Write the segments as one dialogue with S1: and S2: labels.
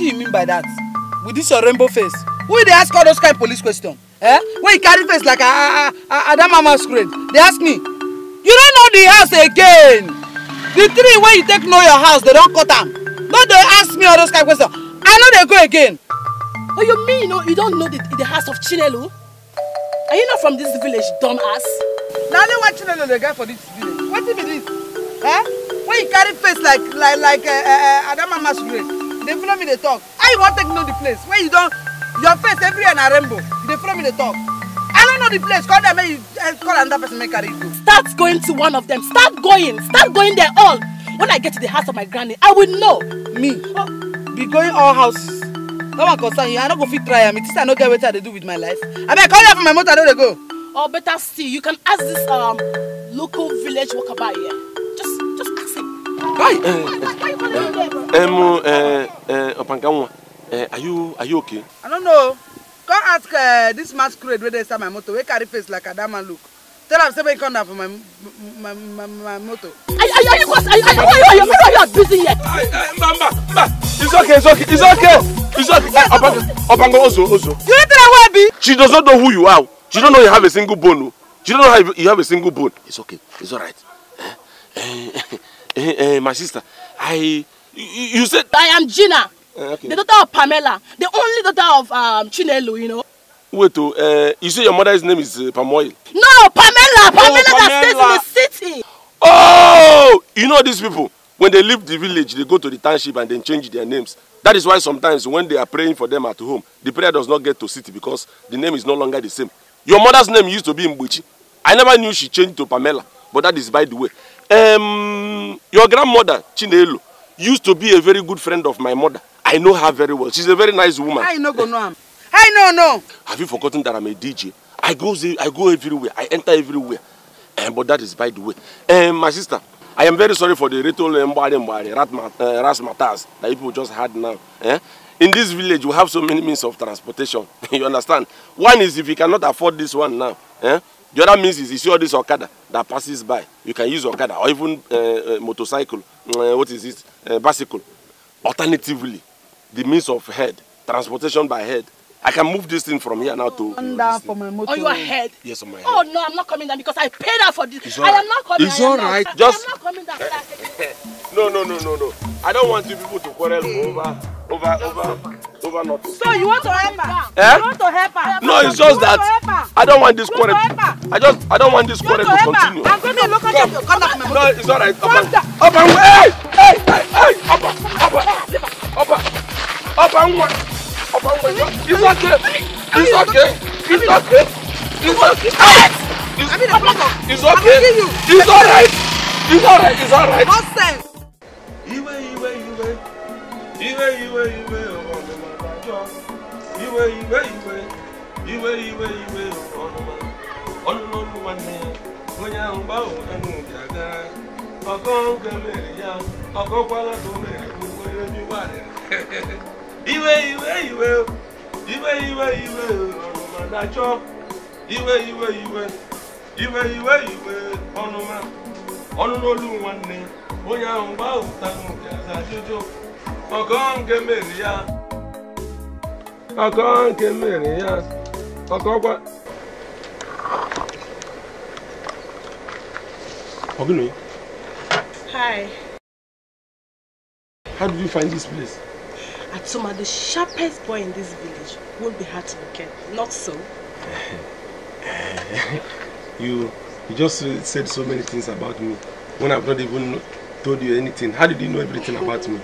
S1: do you mean by that? With this your
S2: rainbow face? Who they ask all those kind of police questions? Eh? When you carry face like a, a, a, a they ask me, you don't know the house again. The three when you take know your house, they don't cut them. No, they ask me all those kind of questions. I know they go again.
S1: Oh, you mean you, know, you don't know the, the house of Chinelo? Are you not from this village, dumbass? Now only one Chinelo the guy for this village. What if it is? Eh? When you carry face
S2: like like like uh, eh, uh, eh, mama's eh, masquerade, they follow me They talk I want to take know the place where you don't your face everywhere na rainbow They follow me They talk i don't know the place call them make you eh,
S1: call another person make a go. start going to one of them start going start going there all when i get to the house of my granny i will know. me oh, be going all house no one concern you i not go fit try am mean, think I i not get what i do with my life I call you for my mother. i no dey go. or oh, better still you can ask this um, local village worker by here. Um,
S2: uh, uh, Opangawa, uh, are you are you okay?
S1: I don't know. Come ask uh, this masquerade where they start my motor. Where carry face like a damn look. Tell him somebody come down for my my my, my motor. Are, are, are you are you are you
S2: are you busy yet? Mama, mama, it's okay, it's okay, it's okay, it's okay. Uh, Opangawa, Opangawa, Ozo, Ozo. Do you think I will be? She does not know who you are. She don't know you have a single bone. Oh. She don't know how you have a single bone. It's okay, it's all right. Eh? Eh? Hey, eh, eh, my sister, I... You, said... I am Gina. Uh, okay. The daughter of Pamela. The only
S1: daughter of um, Chinelo, you know.
S2: Wait, oh, uh, you say your mother's name is uh, No, Pamela!
S1: Pamela, oh, Pamela that stays in the city!
S2: Oh! You know these people, when they leave the village, they go to the township and then change their names. That is why sometimes when they are praying for them at home, the prayer does not get to city because the name is no longer the same. Your mother's name used to be Mbuchi. I never knew she changed to Pamela, but that is by the way. Um, Your grandmother, Chinelo, used to be a very good friend of my mother. I know her very well. She's a very nice woman. I know, go no. I know, Have you forgotten that I'm a DJ? I go, I go everywhere. I enter everywhere. Um, but that is by the way. Um, my sister, I am very sorry for the little mbari eh, mbari, rat matters that people just had now. Eh? In this village, we have so many means of transportation. you understand? One is if you cannot afford this one now, eh? The other means is you see all this Okada that passes by. You can use Okada or even uh, uh, motorcycle, uh, what is it, uh, bicycle. Alternatively, the means of head, transportation by head. I can move this thing from here now to... down
S1: for my motor. On your head? Yes, on my head. Oh, no, I'm not coming down because I paid her for this. It's I am not coming It's all right. Not, Just... I'm not coming down.
S2: no, no, no, no, no. I don't want you people to quarrel over, over, over... over nothing. So you want to help her? Eh? You want to help her? No, it's just that I don't want this quarrel. I just I don't want this quarrel to continue. I'm going to look at you. Come up, No, it's all right. Up and up hey, hey, hey, hey, up, up, up, up and one, up and one. It's okay. It's okay. It's okay. It's okay. It's okay. It's all right. It's all right. It's all right. Nonsense. Iwe, iwe, iwe, iwe, iwe, iwe. Oh. Iwe iwe iwe iwe ìwé ìwé ọ̀nùmọ̀ ọ̀nùmọ̀ ní onye ahụ gbanwe ẹnu ìjà gan ọkọ oge mere ya ọkọ kwara tó mere gbogbo ihe ní wà iwe iwe iwe ìwé ìwé ìwé ìwé ọ̀nùmọ̀ dájọ́ ìwé ìwé ìwé iwe iwe iwe ọnụma ọnụn'olu nwanne onye ahụ gbaa ụta n'oge aza ajụjụ ọgọ nke mere ya ọkọ nke mmiri ya ọkọ gwa Ogino. Hi. How did you find this place?
S1: Atuma, the sharpest boy in this village won't be hard to locate. Not so.
S2: you you just said so many things about me when I've not even told you anything. How did you know everything about me?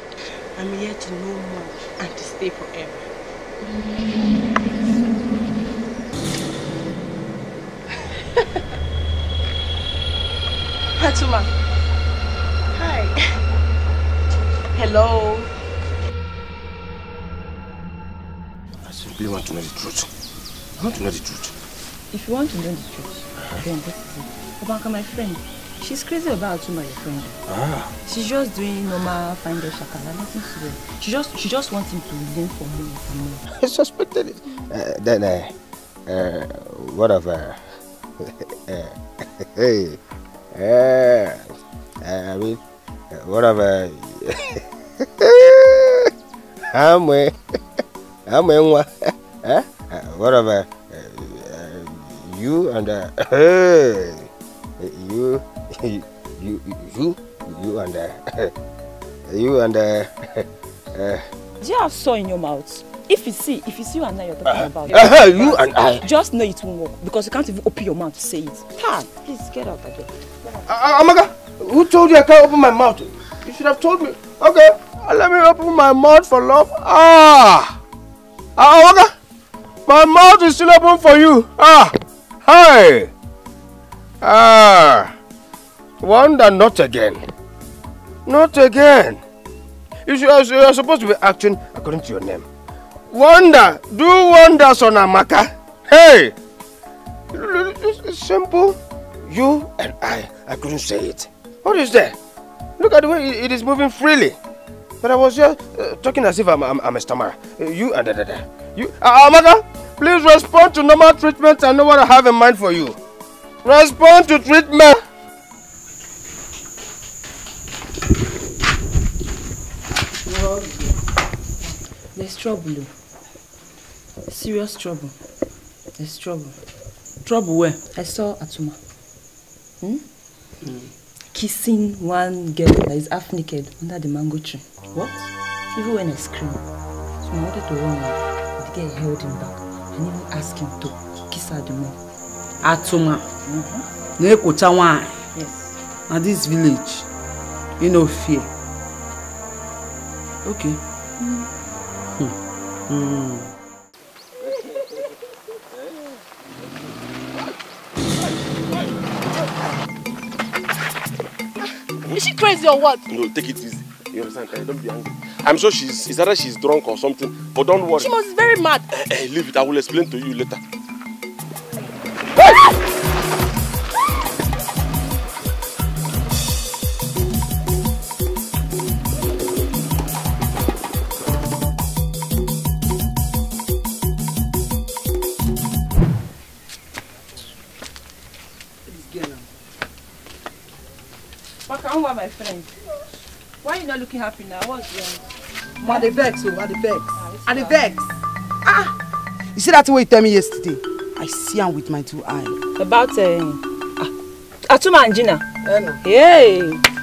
S2: I'm here to know more and to stay forever. Hi.
S1: Hello.
S2: I simply want to know the truth. I want to know the truth.
S1: If you want to know the truth, uh -huh. then this is it. Obaka, my friend, She's crazy about you, my friend. Ah. She's just doing
S2: normal finder shakala, nothing serious. She just she just wants him to lean for me. and more. I suspected it. Uh, then uh, uh, what of uh, uh hey, uh, uh, I mean, uh, whatever. of uh, I'm way, I'm way, what whatever. uh, you and uh, you. you, you, you, and uh, you and uh, uh, do you have saw in your mouth? If you see, if see
S1: you and I you're talking uh, about, uh, it, you and I
S2: just know it won't work because you can't even open your mouth to say it. Tan, please get out again. Uh, uh, Amaga, who told you I can't open my mouth? You should have told me. Okay, uh, let me open my mouth for love. Ah, uh, Amaga, my mouth is still open for you. Ah, hi. Ah. Wonder not again. Not again. You should, you're supposed to be acting according to your name. Wonder. Do wonders on Amaka. Hey! It's simple. You and I. I couldn't say it. What is there? Look at the way it is moving freely. But I was just uh, talking as if I'm, I'm, I'm a stammerer. you and da da You, uh, uh, Amaka, please respond to normal treatment I know what I have in mind for you. Respond to treatment. There's trouble. Serious trouble. There's trouble. Trouble where? I saw Atuma. Hmm?
S3: Mm.
S2: Kissing one girl that is half naked under
S1: the mango tree. What? Even when I screamed, so I wanted to run away. The girl held him back and even asked him to kiss her the more.
S2: Atuma. Mm-hmm. Yes. Now this village, you know fear. Okay. Mm. Mm. Is she crazy or what? No, take it easy. You understand? Eh, don't be angry. I'm sure she's, it's either she's drunk or something, but don't worry. She must be very mad. Eh, eh, leave it. I will explain to you later.
S1: looking happy now. What's wrong? Ma, the vex, oh, at the vex. At ah, the vex. Ah! You see that way you tell me yesterday? I see him with my two eyes. About uh, Atuma and Gina. Yeah, Hey,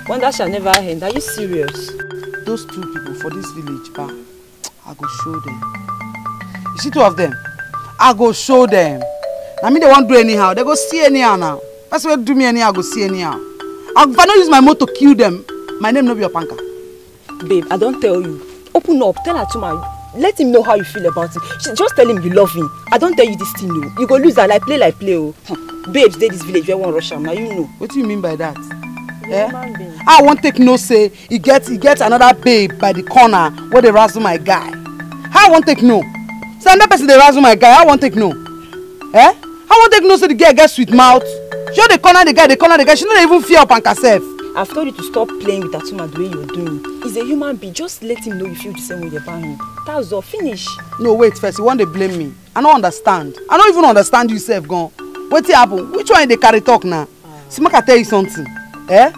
S1: that shall never end. Are you serious?
S2: Those two people for this village, ba, I go show them. You see two of them? I go show them. I mean, they won't do anyhow. They go see anyhow now. That's where do me anyhow, I go see anyhow. I, if I don't use my motor to kill them, my name no be panka.
S1: Babe, I don't tell you. Open up, tell her to my. Let him know how you feel about it. She, just
S2: tell him you love him. I don't tell you this thing, no. Oh. You go lose her like play like play, oh. Hmm. Babes, they this village, where one rush now you know. What do you mean by that?
S3: Yeah? Eh?
S2: I won't take no say. He gets he gets another babe by the corner where they razzle my guy. I won't take no. Say another person they razzle my guy. I won't take no. Eh? I won't take no say the girl gets sweet mouth. She the corner the guy, the corner the guy. She not even fear up on herself.
S1: I've told you to stop playing with Atuma the way you're doing.
S2: He's a human being. Just let him know you feel the same way about him. That's all. Finish. No, wait first. You want to blame me? I don't understand. I don't even understand yourself, gone. What's happened? Which one they carry talk now? Uh. See, I tell you something. Eh?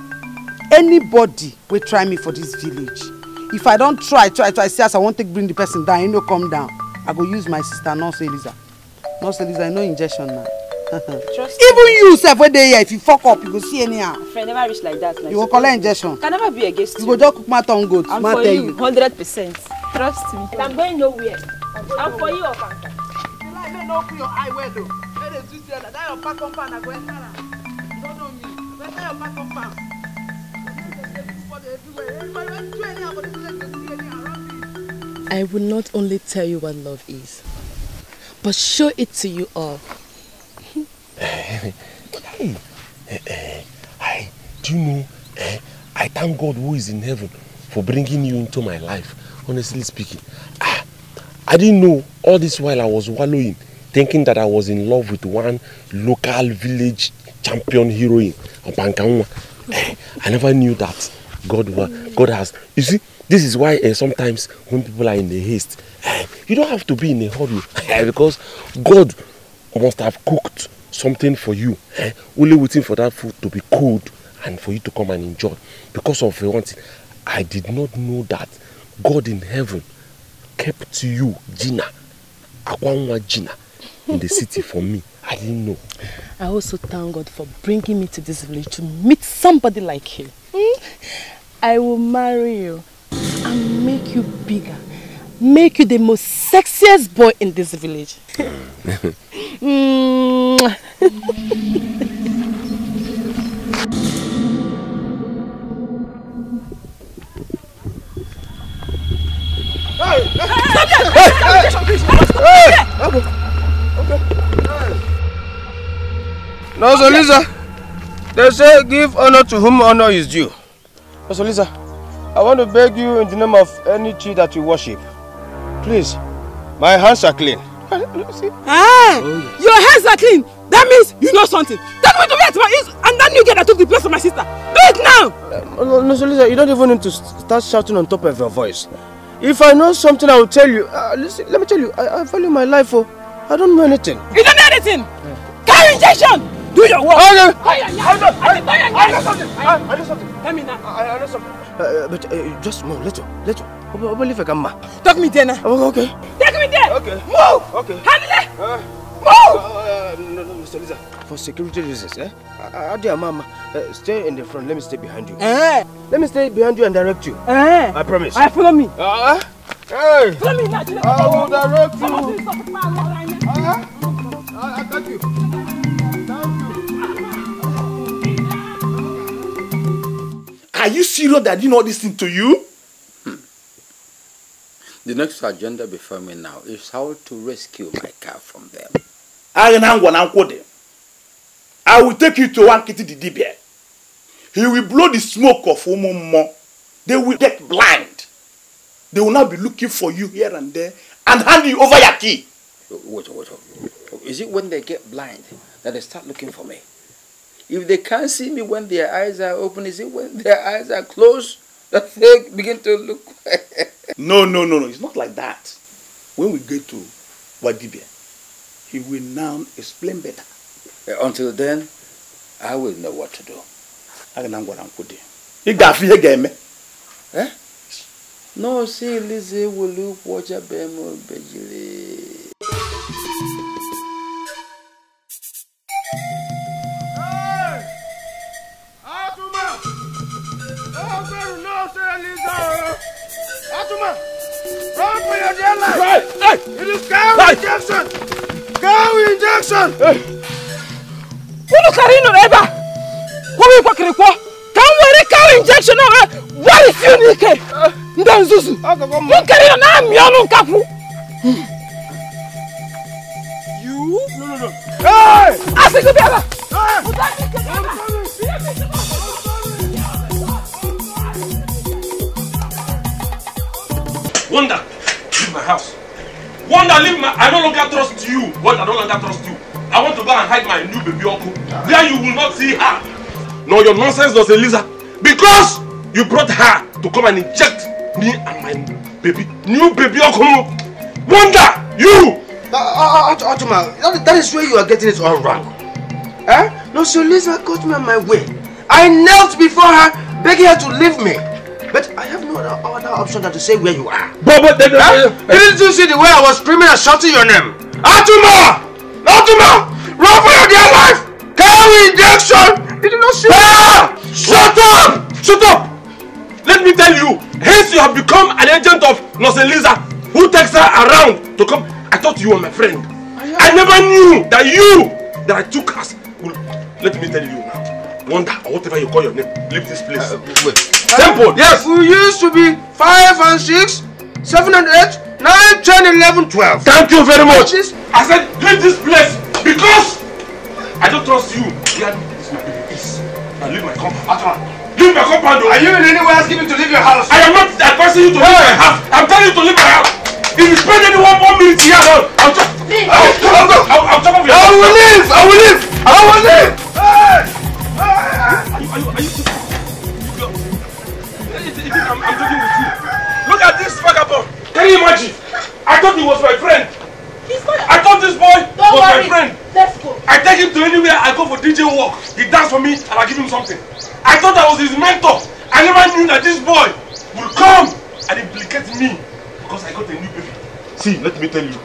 S2: Anybody will try me for this village. If I don't try, try, try, see I won't take bring the person down, you know, come down. I go use my sister, nurse Eliza. Nurse Eliza, no injection now. even you sef wey dey here if you fok up you go see anyhow.
S1: friend never reach like that. Like you go
S2: collect injection. can
S1: never be against you. you go
S2: just cook mouth on goat. i'm for you
S1: hundred percent trust me. i'm going nowhere i'm for you ofanka.
S2: you like make open your eye well o make dey do there that your pack compound na go enter am you no know me better your pack compound.
S1: I will not only tell you what love is, but show it to you all
S2: hey, hey, eh, eh. hey, do you know, eh, I thank God who is in heaven for bringing you into my life, honestly speaking. Ah, I didn't know all this while I was wallowing, thinking that I was in love with one local village champion heroine, Opankanwa. Eh, I never knew that God, God has. You see, this is why uh, sometimes when people are in a haste, uh, you don't have to be in a hurry because God must have cooked something for you, eh? only waiting for that food to be cold and for you to come and enjoy because of one I did not know that God in heaven kept you, Gina, Akwanwa Gina, in the city for me. I didn't know.
S1: I also thank God for bringing me to this village to meet somebody like you. Hmm? I will marry you and make you bigger make you the most sexiest boy in this
S2: village. No, so Lisa, they say give honor to whom honor is due. No, Lisa, I want to beg you in the name of any tree that you worship, Please, my hands are clean. See? Ah, Your hands are clean. That means you know something. Tell me to wait my ears and that new girl that took the place of my sister. Do it now! Uh, no, no, Solisa, you don't even need to start shouting on top of your voice. If I know something, I will tell you. Uh, listen, let me tell you, I, I value my life. Oh. I don't know anything. You don't know anything? Yeah. Carry injection! Do your work. I know. I, know something. I know something. Tell me now. I, know something. Uh, uh, but uh, just more, little, little. Open Take me there now. okay. Take me there. Okay. Move. Okay. Handle it. Uh, Move. Uh, uh, no, no, Mr. Lisa. For security reasons, eh? Adia, mama, uh, stay in the front. Let me stay behind you. Eh. Let me stay behind you and direct you. Eh. I promise. I follow me. Uh, uh hey. Follow me now. I will direct you. Uh, I got you. Are you serious that I did all this thing to you? The next agenda before me now is how to rescue my car from them. I will take you to Wankiti the Dibia. He will blow the smoke of Umumo. They will get blind. They will now be looking for you here and there and hand you over your key. Wait, wait, wait. Is it when they get blind that they start looking for me? If they can't see me when their eyes are open, is it when their eyes are closed? does begin to look? no, no, no, no. It's not like that. When we get to Wadibia, he will now explain better. Uh, until then, I will know what to do. I You Eh? No, see, Lizzie will look what you're bemo bejili. you know, sir, Lisa. Atuma, run for your dear life. Right. Hey. It is cow right. injection. Cow injection. Kulu karino eba. Kumi kwa kirikwa. Kamwere cow injection na wari funike. Nda nzuzu. Mukarino na You? No, no, no.
S3: Hey! Asiku beba.
S2: Hey! Wonder, leave my house. Wonder, leave my. I no longer trust you. What I no longer trust you. I want to go and hide my new baby uncle. There you will not see her. No, your nonsense does Eliza. Because you brought her to come and inject me and my baby, new baby uncle. Wonder, you. Uh, uh, uh, Ottoman, that, that is where you are getting it all wrong. Eh? No, so Lisa caught me on my way. I knelt before her, begging her to leave me. But I have no other option than to say where you are. But, but, the, the, huh? the, Didn't you see the way I was screaming and shouting your name? Atuma! Atuma! Run for your dear life! Carry injection! Did you not see ah! Shut up! Shut up! Let me tell you, hence you have become an agent of Noselisa who takes her around to come. I thought you were my friend. I, never knew that you, that I took us. Well, let me tell you now. Wonder or whatever you call your name, leave this place. Uh, wait. Temple, yes. We used to be five and six, seven and eight, nine, ten, eleven, twelve. Thank you very much. I said, leave this place because I don't trust you. Here, this my peace. I leave my compound. After Leave my compound. Are you in any way asking me to leave your house? I am not advising you to leave my house. I'm telling you to leave my house. If you spend any one more minute here, I'll, I'll just. I'll, I'll, I'll, I'll, I'll chop off your. I will leave. I will leave. I will leave. Hey! Hey! Are you? Are you? Are you? I'm, I'm talking with you. Look at this vagabond. Can you imagine? I thought he was my friend. He's not. I thought this boy Don't was worry. my friend. Let's go. I take him to anywhere I go for DJ work. He dance for me and I give him something. I thought I was his mentor. I never knew that this boy would come and implicate me because I got a new baby. See, let me tell you.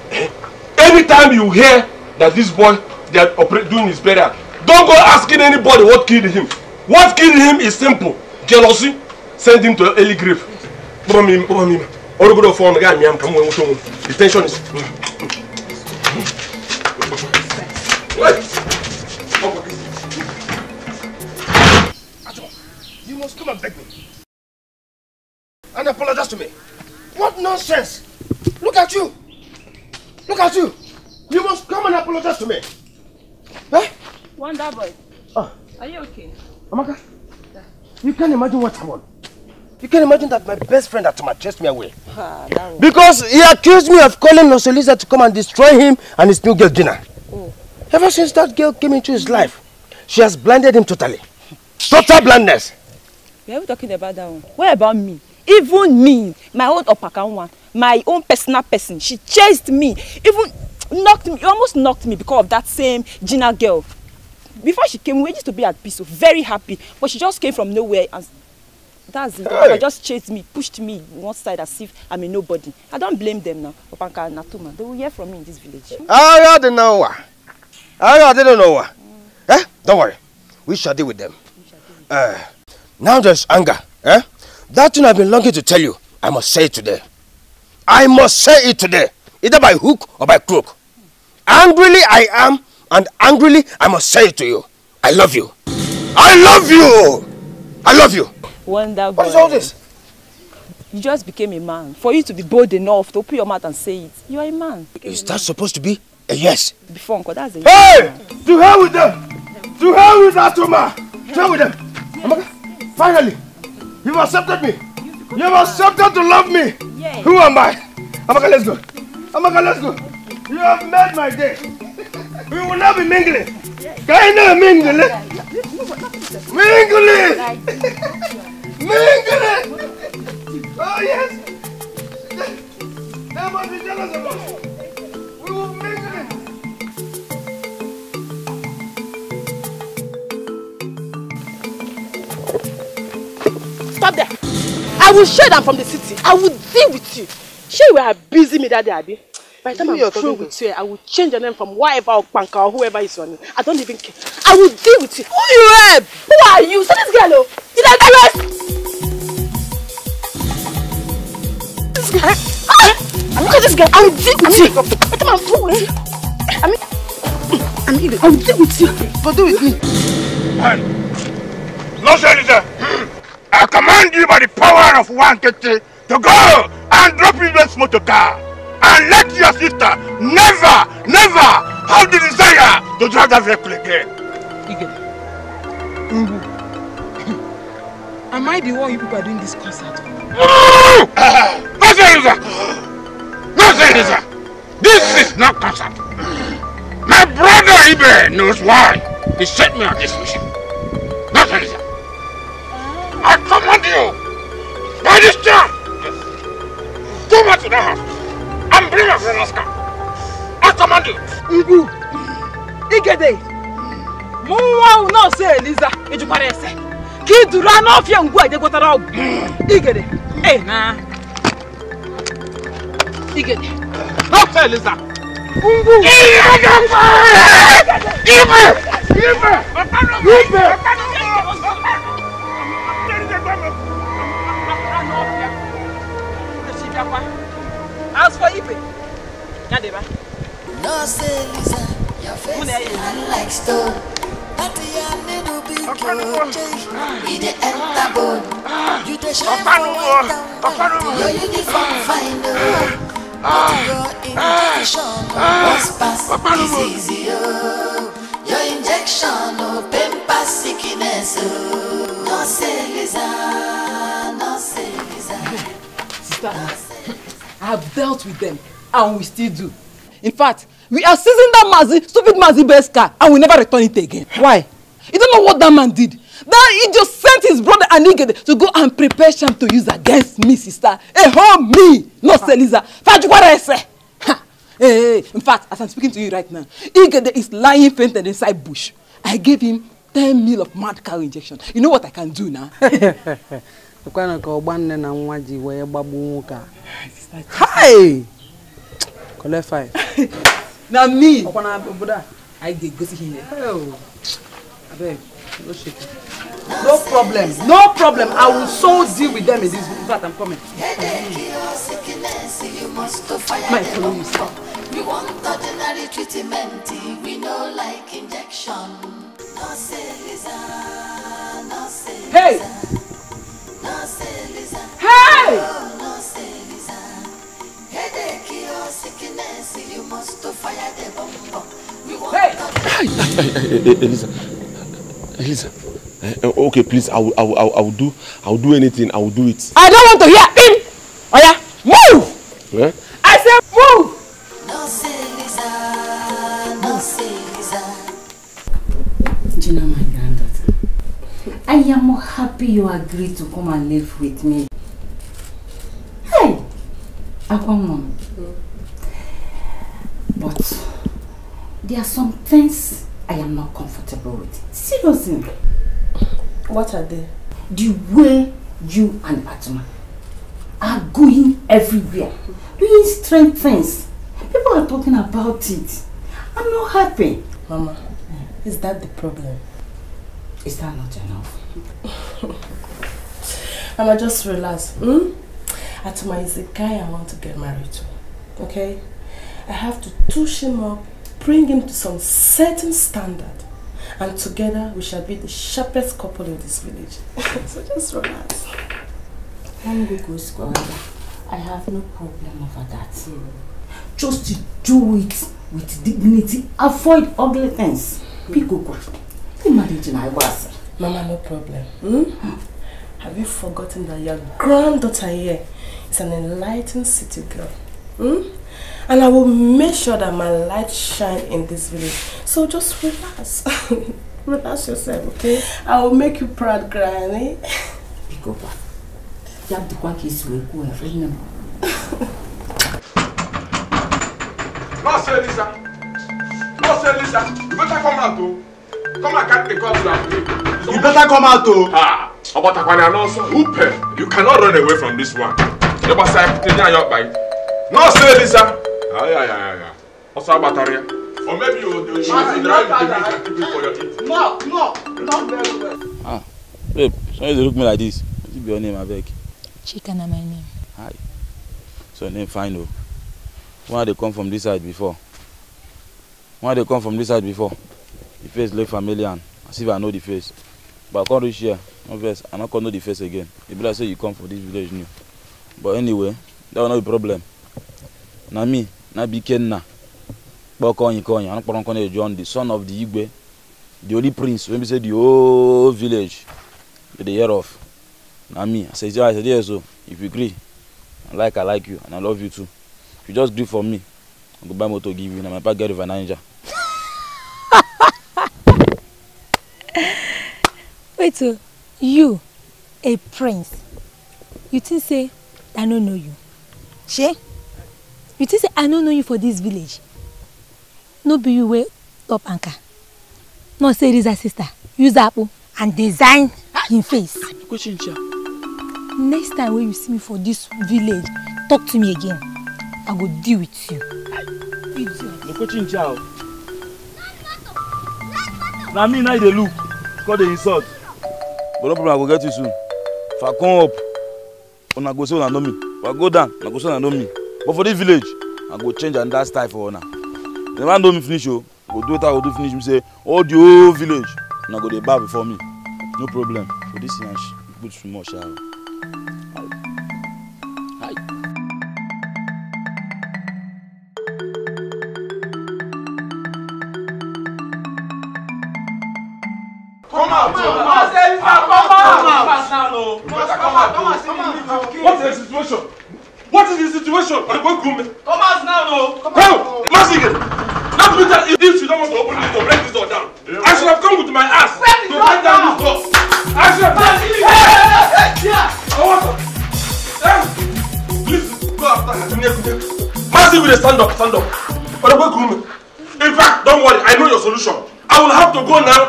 S2: Every time you hear that this boy they are doing his burial, don't go asking anybody what killed him. What killed him is simple. Jealousy. send him to early grave. Kpọba m ime, kpọba All good of obodo ọfọ ọnụ ga amịa m ka m wee The tension is... You must come and beg me. And apologize to me. What nonsense! Look at you! Look at you! You must come and apologize to me. Huh? Wonder boy. Oh. Are you okay? Amaka? Yeah. You can't imagine what I want. You can imagine that my best friend had to chase me away. Ah, because he accused me of calling Nosolisa to come and destroy him and his new girl, Gina. Mm. Ever since that girl came into his life, she has blinded him totally. Total blindness.
S1: Why are we talking about that one?
S2: What about me? Even
S1: me, my own Opakan one, my own personal person, she chased me, even knocked me, almost knocked me because of that same Gina girl. Before she came, we used to be at peace, so very happy, but she just came from nowhere and that's it. Hey. just chased me, pushed me one side as if I'm a nobody. I don't blame them now. Opanka Natuma. They will hear from me in this village.
S2: I don't know. I don't know. Eh? Don't worry. We shall deal with them. Uh, now there's anger. Eh? That thing I've been longing to tell you, I must say it today. I must say it today, either by hook or by crook. Angrily I am, and angrily I must say it to you. I love you. I love you! I love you!
S1: Wonder What is all this?
S2: You just became a man. For you to be bold enough to open your mouth and say it, you are a man. Is a that supposed to be a eh, yes? Before uncle, that's a Hey! Man. To hell with them! To hell with that woman! To hell with them! yes. finally, you've accepted me. You've, accepted to love me. Yes. Who am I? Amaka, let's go. Amaka, let's go. You have made my day. We will not be mingling.
S3: Can you not mingle? Mingle! Mingling!
S2: Oh, yes! They must be jealous of us.
S3: We will mingle.
S2: Stop there. I will show them from the city. I will deal with you. Sure, you are busy me that day, Abby. By the time I'm through with you, I
S1: will change your name from whatever or Panka or whoever is on I don't even care. I will deal with you. Who you help? Who are you? So this girl, oh, did I arrest? I'm guy. Look at this guy. I'll deal with you. What am I doing? I mean,
S2: I mean, I'll with you. But do with me. Man, no senator. I command you by the power of one Kete to go and drop in this motor car and let your sister never, never have the desire to drive that vehicle again. Ige, Mbu, am I the one you people are doing this concert No, Nonsense! Nonsense! This is not concert. My brother Ibe knows why he sent me on this mission. Nonsense! I command you by this time. Go back to the house and bring my friend Oscar. I command you. Ibu, Igede, Muwa will not say Eliza, Ijukwara Ese kiduru anụ ọfịa ngwu a je gwọtara ọgwụ igede ee eh, na igede Eliza ngwu
S3: ibe ibe ibe
S2: As for Ibe, Nadeba.
S3: say Lisa, your face is unlike stone. Ọ̀pánuwo
S2: I have dealt with them and we still do. In fact, we are seizing that Mazi, stupid Mazi best car, and we never return it again. Why? You don't know what that man did. That he just sent his brother Anigede to go and prepare sham to use against me, sister. Eh, oh, me, not Seliza. Fajuwarese. Hey, in fact, as I'm speaking to you right now, Igede is lying fainted inside bush. I gave him ten mil of mad cow injection. You know what I can do now? Ukwana ka ogbanne na nwa ji wee gbagbu nwoke a. Hi! Collect five na me upon our brother i dey go see him oh abeg no shake no problem no problem i will so deal with them in this in fact i'm coming
S3: my follow you sir. we want ordinary treatment we no like injection no lisa no hey no say lisa no lisa Hey! you
S2: hey! Elisa, Elisa. Uh, okay, please. I will, I will, I will do. I will do anything. I will do it.
S3: I don't want to hear him. Oh yeah, move. Yeah? I said move. No, say Lisa. No, say Lisa.
S2: Do you know my granddaughter?
S1: I am happy you agreed to come and live with me. Hey. Aqua mom. Mm. But there are some things I am not comfortable with. Seriously. What are they? The way you and Batman are going everywhere, doing strange things. People are talking about it. I'm not happy. Mama, is that the problem? Is that not enough? Mama, just relax. Hmm? Atuma is the guy I want to get married to. Okay? I have to touch him up, bring him to some certain standard, and together we shall be the sharpest couple in this village. so just relax.
S2: One go goes
S1: I have no problem over that. Hmm. Just to do it with dignity. Avoid ugly things. Hmm. Pick mm. Imagine I was. Mama, no problem. Hmm? Have you forgotten that your granddaughter here is an enlightened city girl? Hmm? And I will make sure that my light
S2: shine in this village.
S1: So just relax. relax yourself, okay?
S2: I will make you proud, Granny. Go back. You have to go back way. Go ahead. Remember. Master Lisa. Master Lisa. You better come out, though. Come and cut the cord to that You better come out, though. Ah. Ọbatakwana and also Hooper. You cannot run away from this one. The boss I put in your bite. No, say this, sir. Ah, yeah, yeah, yeah. Also, Abataria. Or maybe you will drive the people for your eating. No, no, not very well. Ah, babe, why you look me like this? What's your name, Abeg? Chika na my name. Hi. So, your name fine, though. Why they come from this side before? Why they come from this side before? The face look familiar, as if I know the face. But I can't reach here no vex i no come know the face again e be like say you come for this village new but anyway that one no be problem na me na be ikenna kpọkọnyikonya anụkpọrọnkọnya john the son of the igwe the only prince wey be say the whole village dey dey hear of na me i say i say yes So oh, if you gree i like i like you and i love you too if you just gree for me i go buy motor give you na my papa get river niger.
S1: wait o. Oh. you a prince you think say i no know you She? you think say i no know you for this village no be you way up anchor not say riza sister use apple and design him face next time when you see me for this village talk to me again i go deal with you
S2: na me na you look call the insult but no problem i will get you soon if i come up una go say una know me if i go down una go say una know me but for this village i go change and that style for una the man know me finish I oh, go do wetin i go do finish me say all the whole village una go dey bow before me no problem for this yansh good small sha o.
S3: What is
S2: the situation? What is the situation? I'm going to Come out now, no. Come out. Massacre. That means if you don't want to open this door, break this door down. I should have come with my ass to break down this door. I should have done it. I want to. Please go after her. with a stand up, stand up. But I'm going to In fact, don't worry. I know your solution. I will have to go now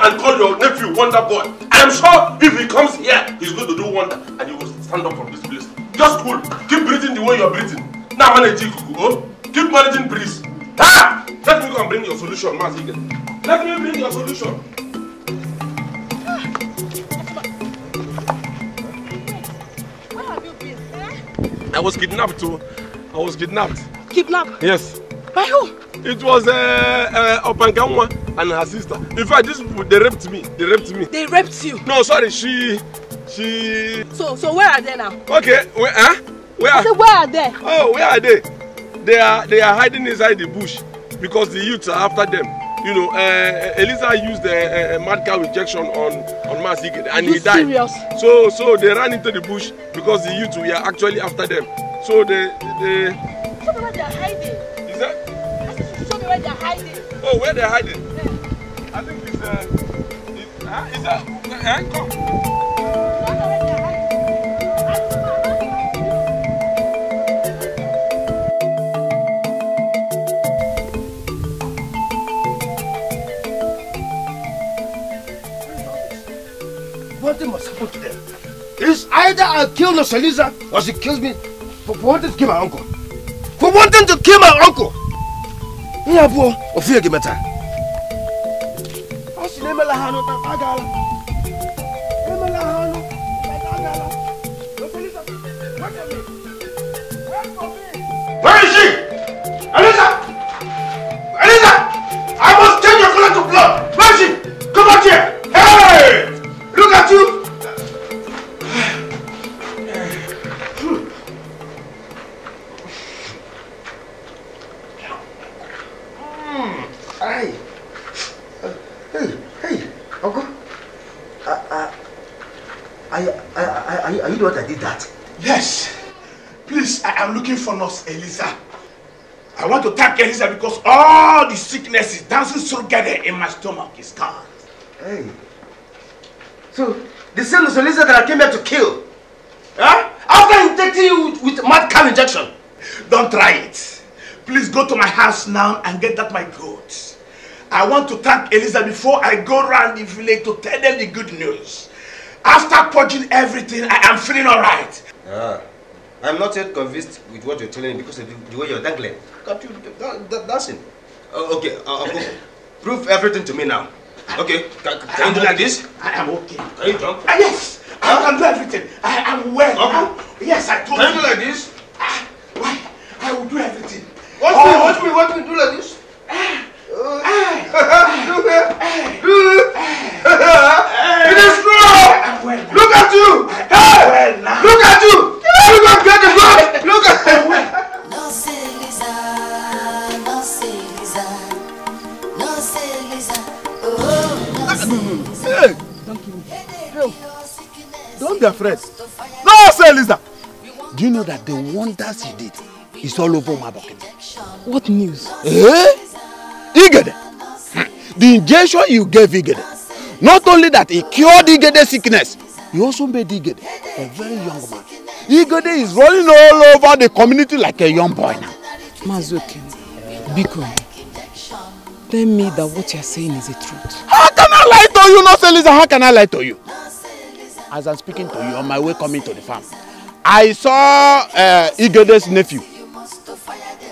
S2: God. I'm sure if he comes here, he's going to do wonder and he will stand up from this place. Just cool. Keep breathing the way you're breathing. Now manage it, Kukuko. Keep managing breeze. Ah! Let me go and bring your solution, Mazigen. Let me bring your solution. Where have you been? Eh? I was kidnapped too. I was kidnapped. Kidnapped? Yes. By who? It was uh, uh, Opangamwa and her sister. In fact, this they raped me. They raped me. They raped you? No, sorry. She, she.
S1: So, so where are they now?
S2: Okay. Where? Huh? Where? I said, where are they? Oh, where are they? They are, they are hiding inside the bush because the youths are after them. You know, uh, uh Eliza used a, uh, a, uh, a mad cow injection on on Masig and you he died. Serious? So, so they ran into the bush because the youths were actually after them. So they, they. Show me where they are hiding. Is that? I said, show me where they are hiding. Oh, where they are hiding? Yeah. What huh? is that? Huh? Come. It's either I kill Noshaliza or she kills me for, wanting to kill my uncle. For wanting to kill my uncle! Yeah, boy, Ophir Gimata. Nema lahano tagala. Nema lahano tagala. Lo salisa. Wait a minute. get this because all the sicknesses dancing together in my stomach is gone. Hey. So, the same is the lizard that I came here to kill. Huh? After injecting you with, with mad cow injection. Don't try it. Please go to my house now and get that my goat. I want to thank Elizabeth before I go round the village to tell them the good news. After purging everything, I am feeling alright. Yeah. I'm not yet convinced with what you're telling me because of the, the way you're dangling. Can't you that, that, dancing? Uh, oh, okay, uh, okay. prove everything to me now. Okay, can, can you do okay. like this? I am okay. Are you drunk? Uh, ah, yes, huh? I can do everything. I am well. Okay. I'm, yes, I told can you. Can you do like this? Uh, why? I will do everything. Watch oh. will you do like this? Uh, It is strong. Look at you.
S3: Look at you. Look at get the blood. Look at him.
S2: Don't be afraid. No say Lisa. Do you know that the wonders you did is all over my bucket? What news? Eh? Igede, the injection you gave Igede, not only that it cured Igede's sickness, you also made Igede a very young man. Igede is rolling all over the community like a young boy now. Mazuki, Biko, tell me that what you're saying is the truth. How can I lie to you, not Elisa? How can I lie to you? As I'm speaking to you, on my way coming to the farm, I saw uh, Igede's nephew.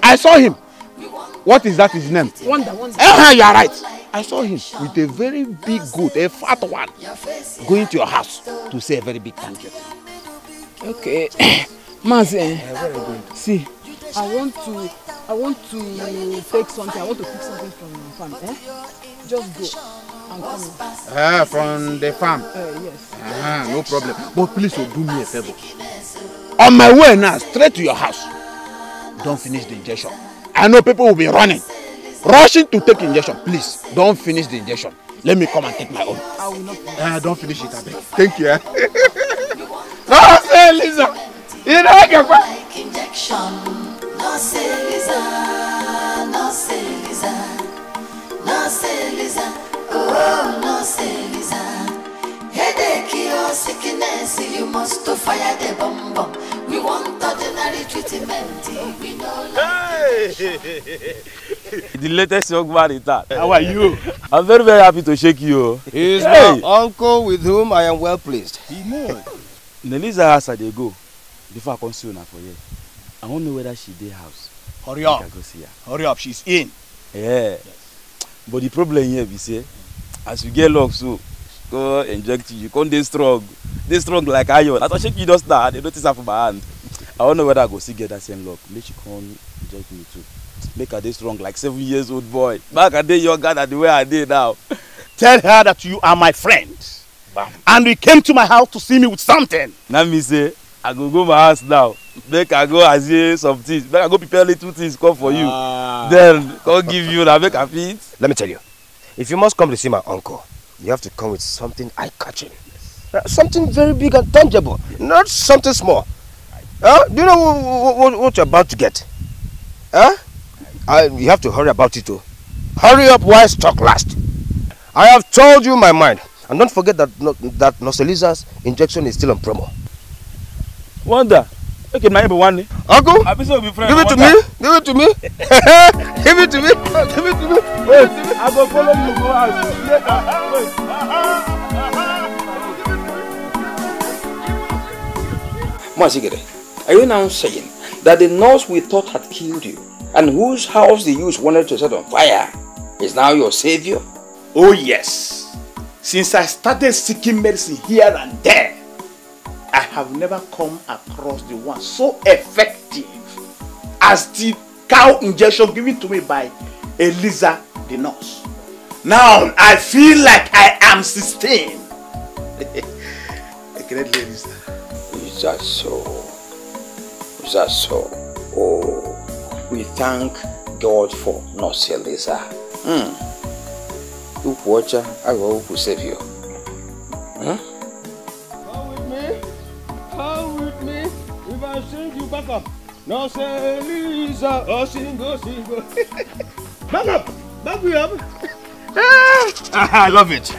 S2: I saw him. What is that his name? Wonder,
S3: wonder. you are right.
S2: I saw him with a very big goat, a fat one, going to your house to say a very big thank eh? you. Okay. Mazi, uh, see, I want to, I want to take something, I want to pick something from
S3: the farm, eh? Just go and come. Ah, uh, from the farm? Uh, yes.
S2: Ah, no problem. But please, oh, do me a favor. On my way now, straight to your house, don't finish the injection. I know people will be running, rushing to take injection. Please, don't finish the injection. Let me come and take my own. I will not finish. Uh, don't finish it, I
S3: Thank you. Eh? no, say Lisa. You know what? can injection. No, say Lisa. No, say Lisa. No, say Lisa. Oh, no, say Lisa. Headache or oh, sickness, you must fire the bomb bomb. We want ordinary treatment. Oh, we know. Hey!
S2: the latest young man in town. How are you? I'm very very happy to shake you. He is hey. my uncle with whom I am well pleased. He know. Nelisa house I dey go before I come see una for here. I wan know whether she dey house. Hurry up. I go see her. Hurry up, she's in. Yeah. Yes. But the problem here be say as you get luck so go inject you, come this strong. this strong like iron. As I shake you just now, they notice that for my hand. I don't know whether I go see get that same luck. Make she come inject me too. Make her this strong like seven years old boy. Back a day younger than the way I did now. Tell her that you are my friend. Bam. And you came to my house to see me with something. Now me say, I go go my house now. Make I go as some things. Make I go prepare little things come for you. Ah. Then will give you now. Make I feed. Let me tell you. If you must come to see my uncle, you have to come with something eye-catching. Uh, something very big and tangible, yes. not something small. Uh, do you know what, what, what, you're about to get? Huh? you have to hurry about it too. Hurry up while stock last. I have told you my mind. And don't forget that, that Nocelizas injection is still on promo. Wonder, Okay, my one. Uncle, so be friend, give it to me. Give it to me. give it to me. Give it to me. Wait, I go follow you go out. Masigere, are you now saying that the nurse we thought had killed you and whose house the youth wanted to set on fire is now your savior? Oh yes. Since I started seeking medicine here and there, I have never come across the one so effective as the cow injection given to me by Eliza the nurse. Now I feel like I am 16. Great ladies. Is that so? Is that so? Oh, we thank God for nurse Eliza. Hmm. her? I will okwu you. Hmm? i you back up. No, say Lisa. Oh, single, single. back up. Back me up. ah, I love it.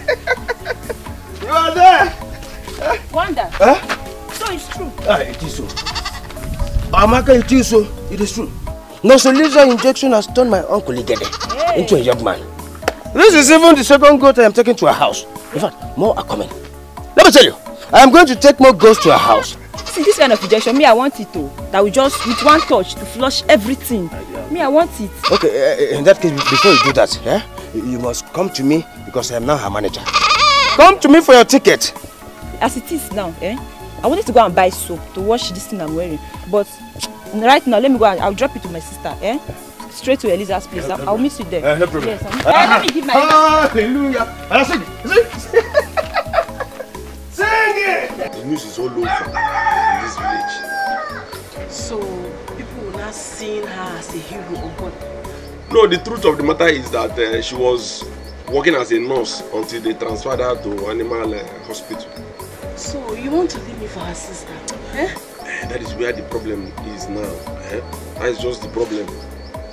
S2: you are there. Wanda. Huh? So it's true. Ah, it is so. Ah, Amaka, it is so. It is true. No, so Lisa injection has turned my uncle Igede hey. into a young man. This is even the second goat I am taking to her house. In fact, more are coming. Let me tell you, I am going to take more goats to her house.
S1: see this kind of injection me i want it o that will just with one touch to flush everything me i want it.
S2: okay uh, in that case before you do that eh, you must come to me because i am now her manager come to me for your ticket.
S1: as it is now eh, i wanted to go and buy soap to wash this thing i'm wearing but right now let me go and i'll drop it to my sister eh? straight to Eliza's place. No I'll, I'll meet you there. Uh, no problem. Yes, I'm...
S2: uh, let me give my. Hallelujah. And I see, see. Sing it! The news is all over in this
S3: village.
S2: So, people will not seeing her as a hero or what? No, the truth of the matter is that uh, she was working as a nurse until they transferred her to animal uh, hospital.
S1: So, you want to leave me for her sister? Eh? Uh,
S2: that is where the problem is now. Eh? That is just the problem.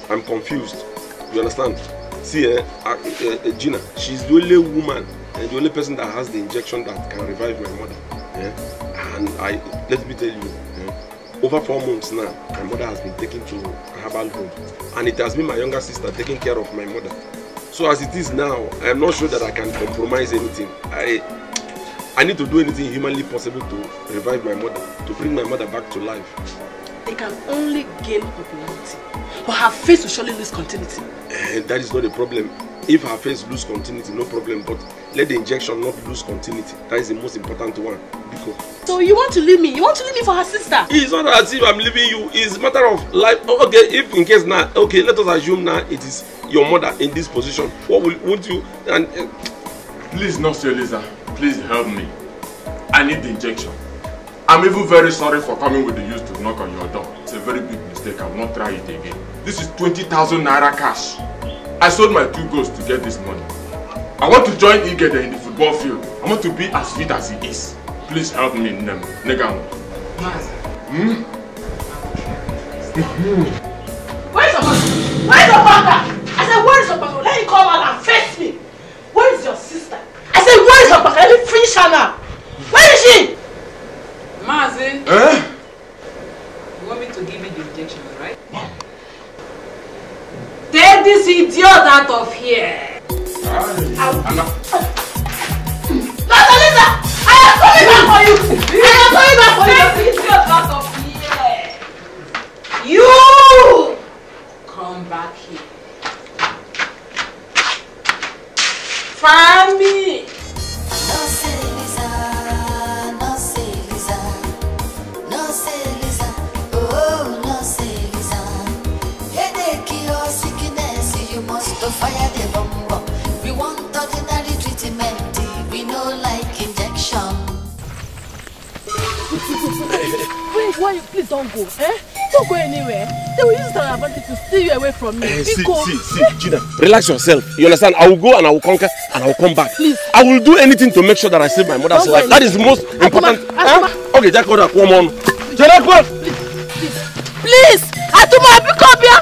S2: I'm confused. You understand? See, eh, uh, uh, uh, Gina, she's the only woman and eh, the only person that has the injection that can revive my mother. Yeah. And I, let me tell you, yeah. over four months now, my mother has been taken to a herbal home. And it has been my younger sister taking care of my mother. So as it is now, I am not sure that I can compromise anything. I, I need to do anything humanly possible to revive my mother, to bring my mother back to life. They can only gain popularity, but her face will surely lose continuity. Uh, that is not a problem. If her face lose continuity, no problem, but let the injection not lose continuity that is the most important one
S1: because. so you want to leave me you want to leave me for her sister.
S2: it's not as if i'm leaving you it's a matter of life oh, okay if in case now okay let us assume now it is your mother in this position what will won't you and. Uh, please nurse eliza please help me i need the injection i'm even very sorry for coming with the use to knock on your door it's a very big mistake I'll not try it again this is twenty thousand naira cash i sold my two goats to get this money I want to join Igede in the football field. I want to be as fit as he is. Please help me, Nnem. Negam. Hmm? Where is your husband? Where is your father? I said, where is your pastor? Let him come out and face me. Where is your sister? I said, where is your pastor? Let me finish her now. Where is she? Mazi. Eh? You want me to give you the injection, right? Mom. Take this idiot out of
S1: here. Anna. Lisa, I am
S2: coming back for
S3: you. I am
S2: coming back for you. You come back here.
S3: Find me. why you please don't go eh don't go
S1: anywhere they will use it advantage to steal you away from me. Uh, see see see Gina
S2: relax yourself you understand I will go and I will conquer and I will come back. please I will do anything to make sure that I save my mother's life that is the most important. Akuma, Huh? Eh? okay Jack order come on. Jack please please please Atuma biko bia.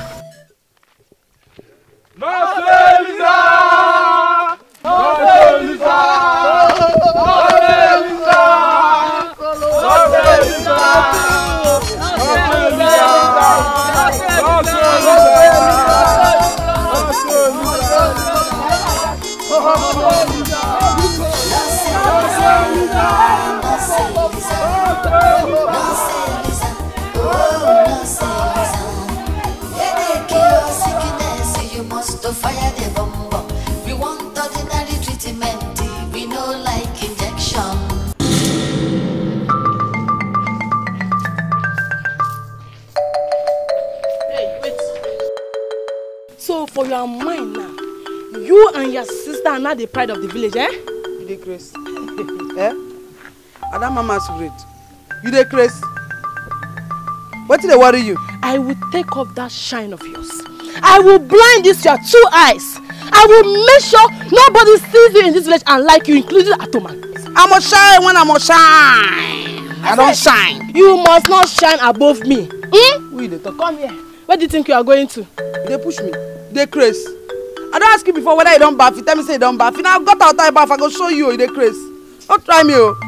S1: are mine now you and your sister are now the pride of the village eh. you dey craze eh
S2: that mama's masquerade you dey What wetin they worry you. i will take off that shine of yours i will blind this your two eyes I
S1: will make sure nobody sees you in this village and like you, including Atoman. I must shine when I must
S2: shine. I, I don't shine. You must not shine above me. Hmm? We need to Come here where do you think you are going to. They push me They dey craze i don't ask you before whether you don't baff you tell me say you don't baff Now na got out you baff i go show you o oh, you dey craze no try me o. Oh.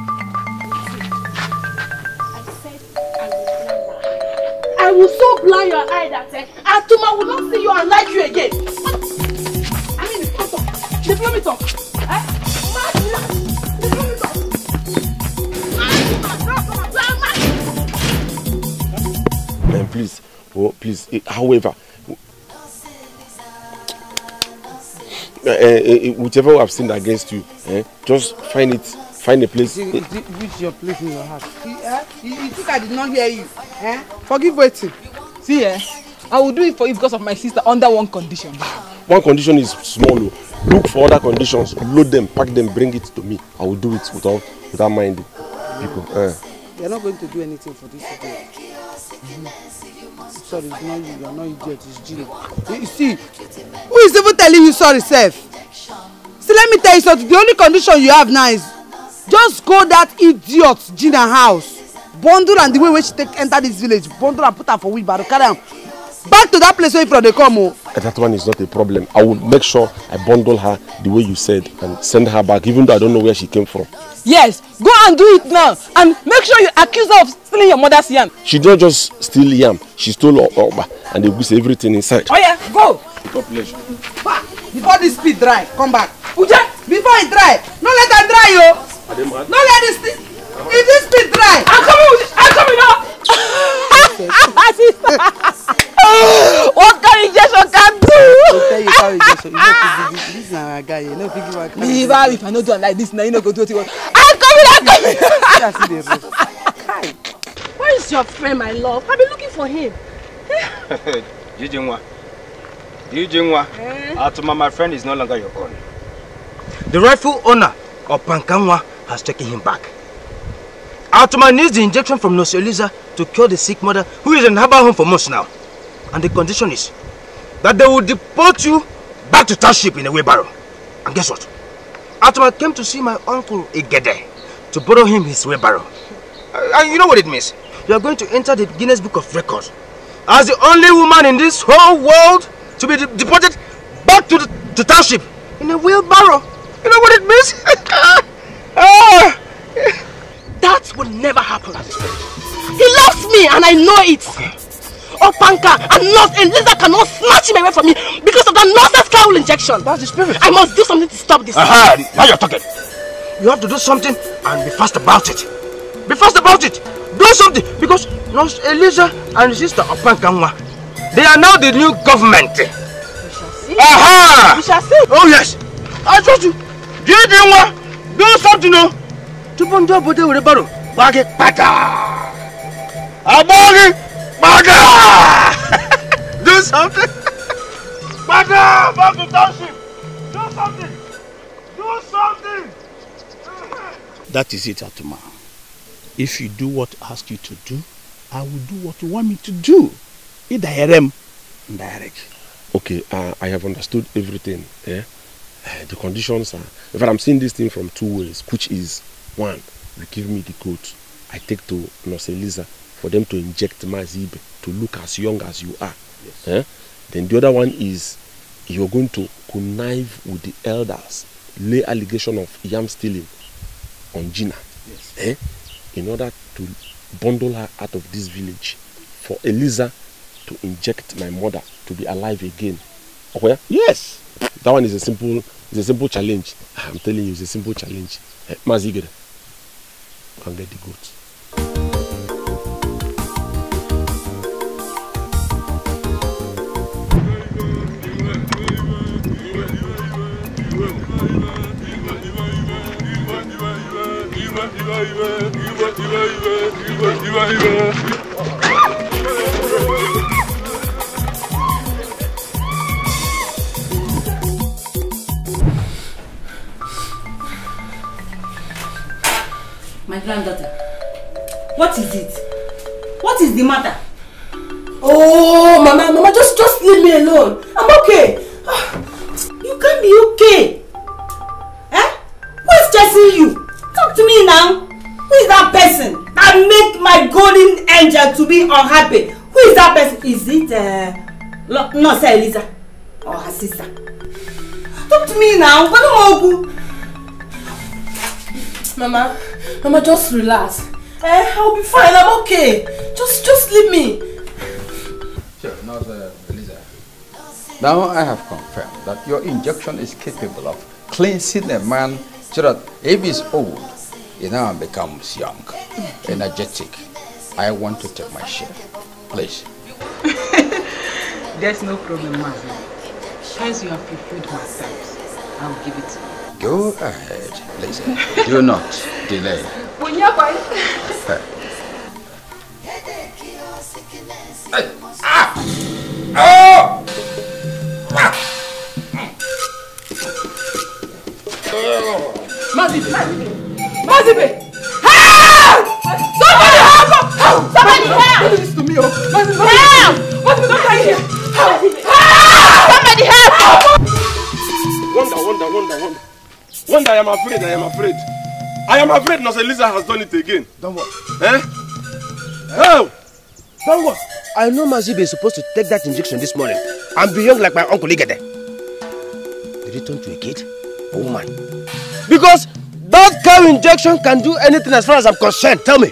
S2: I will
S1: so blind your eye that eh, Atuma will not see you and like you again. I mean, come on. They blow me talk. Eh? Mad, mad. They blow me talk.
S2: Mad, mad. No, no, no. please, oh, please. Eh, however, uh, uh, whichever I've sinned against you, eh, just find it, find a place. Which your place in your heart. you, think I did not hear you? Eh? Forgive waiting. See, eh? I will do it for you because of my sister under one condition. One condition is small. Oh. Look for other conditions, load them, pack them, bring it to me. I will do it without, without minding people. Eh. They are not going to do anything for this today. Mm-hmm. Sorry, it's not you. You are not idiot. It's Gino. You see, who is even telling you sorry, self? See, let me tell you something. The only condition you have now is just go that idiot Gina house. Bundle and the way wey she take enter this village, bundle and put her for wheelbarrow, carry am, back to that place where you from they come. Oh. That one is not a problem. I will make sure I bundle her the way you said and send her back, even though I don't know where she came from. Yes, go and do it now. And make sure you accuse her of stealing your mother's yam. She did not just steal yam, she stole yam and they goose everything inside. Oh yeah, go. The population. Before this speed dry, come back. Uja, before it dry, no let her dry, yo. No let this thing.
S1: If this speed dry. I'm coming, I'm coming up.
S2: what kind of injection can do? I tell you how You know, this na if I no do am like this, Now you no go do wetin you want. I'm coming. I'm coming.
S1: See Where is your friend, my love? I have been looking for him.
S2: Jijinwa, Jijinwa, eh? Atuma, ah, my friend is no longer your own. The rightful owner of Pankanwa has taken him back. Atuma ah, needs the injection from Nosioliza to cure the sick mother who is in her home for months now. And the condition is that they will deport you back to township in a wheelbarrow. And guess what? After I came to see my uncle Igede to borrow him his wheelbarrow. Uh, and you know what it means? You are going to enter the Guinness Book of Records as the only woman in this whole world to be de deported back to the to township in a wheelbarrow. You know what it means? Ah! that will never happen He loves me and I know it. Okay.
S1: Oh panka and not a lizard cannot snatch him away from me because of that nonsense cowl injection. That's the spirit. I must do something to stop this. Aha, now you're
S2: talking. You have to do something and be fast about it. Be fast about it. Do something because Nurse Eliza and Sister Opankanwa, they are now the new government. We
S3: shall see. Aha!
S2: We shall see. Oh yes. I told you. Do you do what? Do something no. body ndị obodo were baro gbaa gị kpata. Agbaa gị Maga! Do something! Maga! MAGA to township! Do something! Do something! That is it, Atuma. If you do what I ask you to do, I will do what you want me to do. Either Herem, direct. Okay, uh, I have understood everything. Yeah? Uh, the conditions are. fact, I'm seeing this thing from two ways, which is one, you give me the code, I take to Nurse Elisa for them to inject Mazib to look as young as you are. Yes. Eh? Then the other one is you're going to connive with the elders, lay allegation of yam stealing on Gina yes. eh? in order to bundle her out of this village for Eliza to inject my mother to be alive again. Okay? Oh, yes. That one is a simple it's a simple challenge. Ah, I'm telling you, it's a simple challenge. Hey, eh, Mazigere, can get the goats. My granddaughter,
S1: what is it? What is the matter?
S3: Oh, Mama,
S1: Mama, just, just leave me alone. I'm okay. Ah, you can't be okay. Eh? Who is chasing you? Talk to me my golden angel to be unhappy. Who is that person? Is it uh, no, it's Eliza or oh, her sister? Talk to me now. Mama, Mama, just
S2: relax. Eh, I'll be fine. I'm okay. Just, just leave me. Sure, now, uh, Now I have confirmed that your injection is capable of cleansing a man so that if he's old, he now becomes young, energetic, I want to take my share. Please. There's no problem, Mazi. As you have fulfilled my terms, I'll give it to you. Go ahead, please. Do not delay. hey. ah! Oh! Ah! Mm. Oh! Mazibe! Mazibe! Somebody! somebody help! Do this to me, oh. help! What's going on here. Help! help! Somebody help! Wonder, wonder, wonder, wonder. Wonder, I am afraid, I am afraid. I am afraid Nurse Elisa has done it again. Don't what? Eh? Oh! Don't what? I know Mazibe is supposed to take that injection this morning and be young like my uncle Igede. Did he turn to a kid? A woman? Because that cow injection can do anything as far as I'm concerned. Tell me.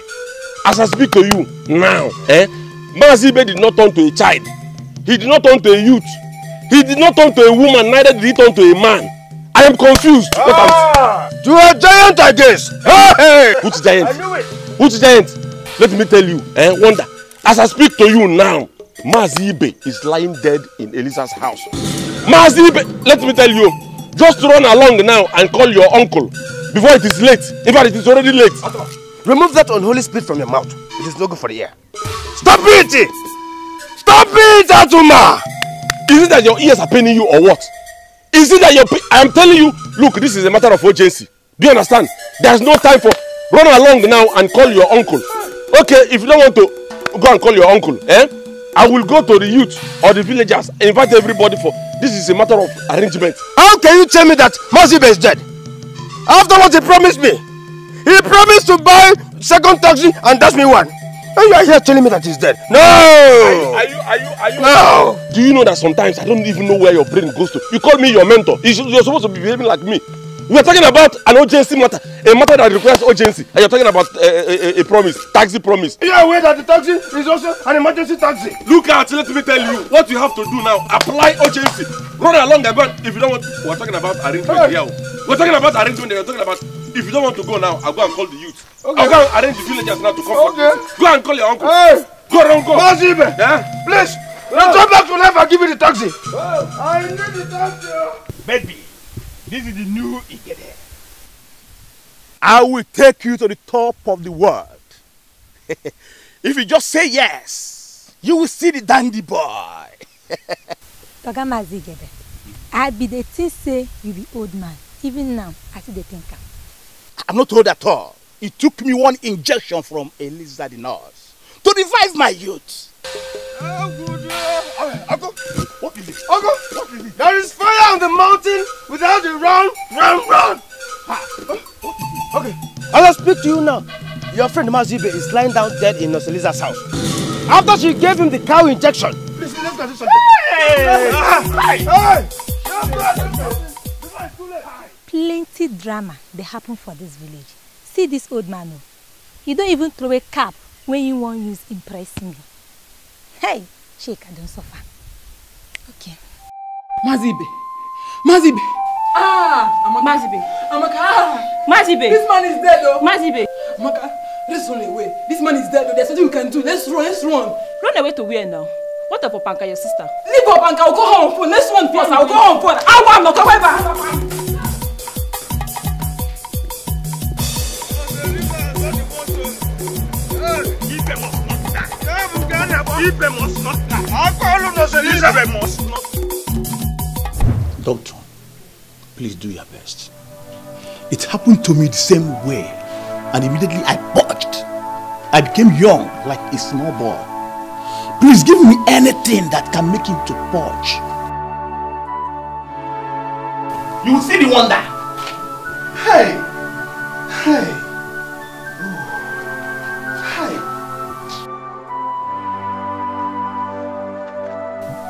S2: as I speak to you now, eh, Mazibe did not turn to a child. He did not turn to a youth. He did not turn to a woman, neither did he turn to a man. I am confused. Ah, I'm... You a giant, I guess. Hey, Which giant? I knew it. Which giant? Let me tell you, eh, Wonder. As I speak to you now, Mazibe is lying dead in Elisa's house. Mazibe, let me tell you, just run along now and call your uncle before it is late. In fact, it is already late. Atoma. Remove that unholy spirit from your mouth. It is no good for the ear. Stop it! Stop it, Atuma! Is it that your ears are paining you or what? Is it that you're... I am telling you, look, this is a matter of urgency. Do you understand? There's no time for... Run along now and call your uncle. Okay, if you don't want to, go and call your uncle. Eh? I will go to the youth or the villagers, invite everybody for... This is a matter of arrangement. How can you tell me that Mazibe is dead? After what he promised me? He promised to buy second taxi and that's me one. And you are here telling me that he's dead. No! Are
S3: you, are you, are you? No!
S2: Do you know that sometimes I don't even know where your brain goes to? You call me your mentor. You're supposed to be behaving like me. We're talking about an urgency matter, a matter that requires urgency. And you're talking about a, eh, a, eh, eh, a, promise, taxi promise. You're aware that the taxi is also an emergency taxi. Look at, let me tell you, what you have to do now, apply urgency. Run along the band if you don't want, we're talking about arrangement here. We're talking about arrangement, we're talking about if you don't want to go now, I'll go and call the youth. Okay. I'll go and arrange the villagers now to come. Okay. Go and call your uncle. Hey. Go and go. Mazibe. Yeah? Please. Return back to life and give me the taxi. Oh, I need the taxi. Baby, this is the new Igede. I will take you to the top of the world. if you just say yes, you will see the dandy boy. Oga Mazigebe, I be the thing say you
S1: be old man. Even now, I see the thinker.
S2: I'm not old at all. It took me one injection from a lizard in us to revive my youth. Uncle, what is it? Uncle, what is it? There is fire on the mountain without a run, run, run. Ah, okay, I'll speak to you now. Your friend Mazibe is lying down dead in Noseliza's house. After she gave him the cow injection.
S3: Please, let's go do something. Ah, hey! Hey! hey. hey. hey. hey. hey. hey. hey. hey.
S1: plenty drama dey happen for dis village see dis old man o oh. He don even throw a cap wey he wan use impress me hey sheik i don suffer
S2: okay. mazibe mazibe ah amaka mazibe amaka ah mazibe this man is dead o oh. mazibe amaka let's run away this man is dead o oh. there's nothing we can do let's run let's run. run away to where now. What of Opanka, your sister? Leave Opanka, I'll go home first. Let's run first. I'll go home first. I want to go ever. Felipe must not Elizabeth must not. Doctor, please do your best. It happened to me the same way, and immediately I purged. I became young like a small boy. Please give me anything that can make him to purge. You will see the wonder.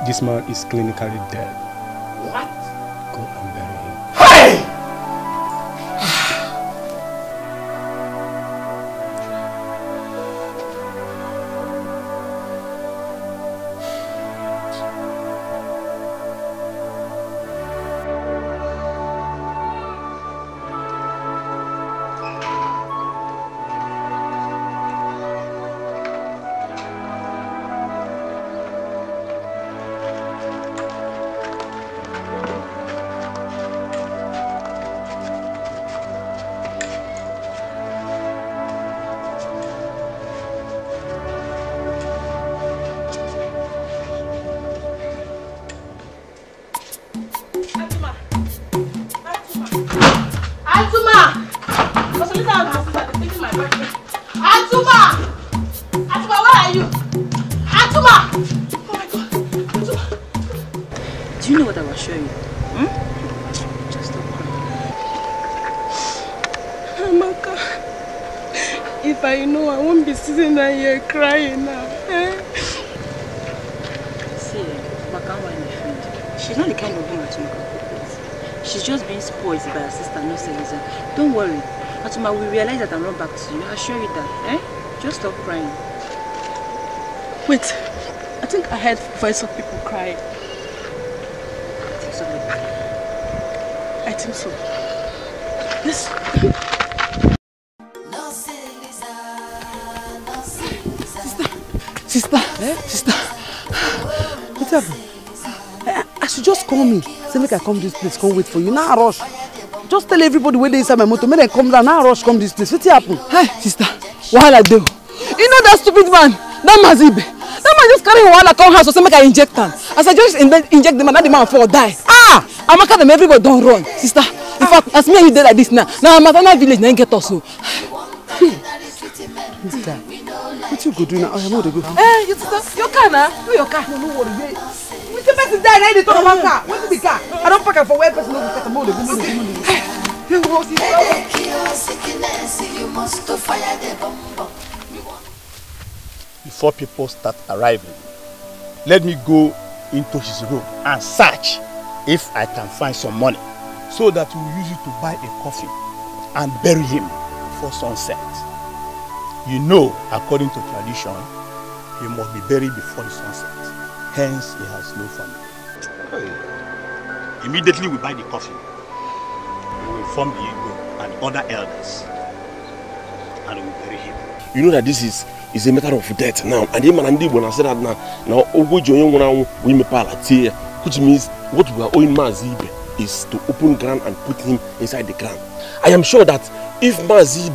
S2: this man is clinically dead.
S1: Wait, I think I heard voice of people crying. I
S3: think so. Yes. sister eh? sister what
S2: happened eh, I, should just call me say make i come this place come wait for you now rush just tell everybody where they inside my motor make I come down now rush come this place What happened? hey eh, sister wahala I o you know that stupid man that mazibe that man just carry wahala come house so say make i inject am as i just inject the man that the man fall die ah amaka them everybody don't run sister in fact as me and you dey like this now Now I'm at another village Now you get us o. this guy you go do now oya mo dey go. eh
S1: you sister your car na no your car. no no
S2: worry wey wetin
S1: person die na e talk about one car wetin the car i don't park am for where person no go park am mo dey go mo
S3: dey go mo dey you must fire the bomb.
S2: before people start arriving. Let me go into his room and search if I can find some money so that we use it to buy a coffin and bury him before sunset. You know, according to tradition, he must be buried before the sunset. Hence, he has no family. Immediately we buy the coffin. We will form the Igbo and other elders and we will bury him. You know that this is is a matter of death now and ịma na ndị Igbo na said that now, now ụgwọ we onye nwụrụ anwụ bụ which means what we are owing Maazị is to open ground and put him inside the ground I am sure that if Maazị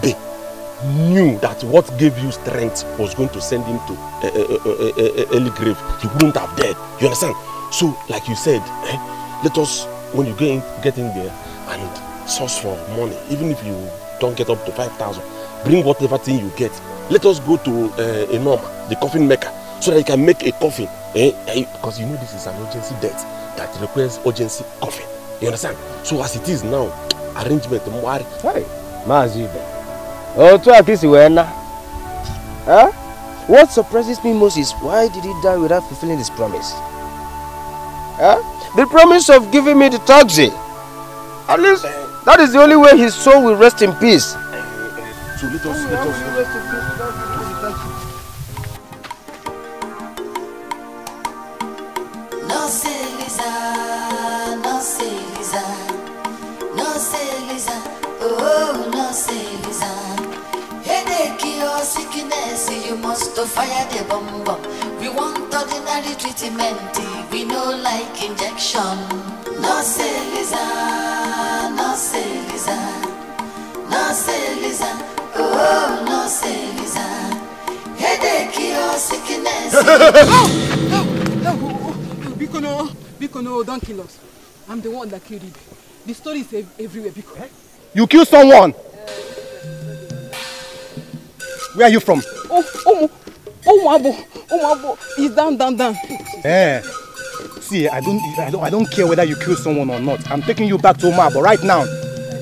S2: knew that what gave you strength was going to send him to a, eh, eh, eh, early grave he wouldn't have died you understand so like you said eh, let us when you get in, get in there and source for money even if you don't get up to 5,000 bring whatever thing you get let us go to uh, eh, Enoma, the coffin maker, so that he can make a coffin. Eh? Because you know this is an urgency death that requires urgency coffin. You understand? So as it is now, arrangement mwari. Hey, Oh, to Otu akisi wena. Huh? What surprises me most is why did he die without fulfilling his promise? Huh? The promise of giving me the taxi. At least eh. that is the only way his soul will rest in peace. Eh, so let us, let
S3: us. your sickness, you must fire the bomb We want ordinary treatment, we no like injection. No Celiza, no Celiza, no Celiza, oh no Celiza. Headache your sickness. Oh, no, no,
S2: no, oh, oh, Bikono, Bikono, don't kill us. I'm the one that killed him. The story is everywhere, Bikono. You killed someone. Where are you from? Oh, oh, oh, Mabo, oh, Mabo, oh, he's down, down, down. Eh. See, I don't, I don't, I don't care whether you kill someone or not. I'm taking you back to Omabo right now.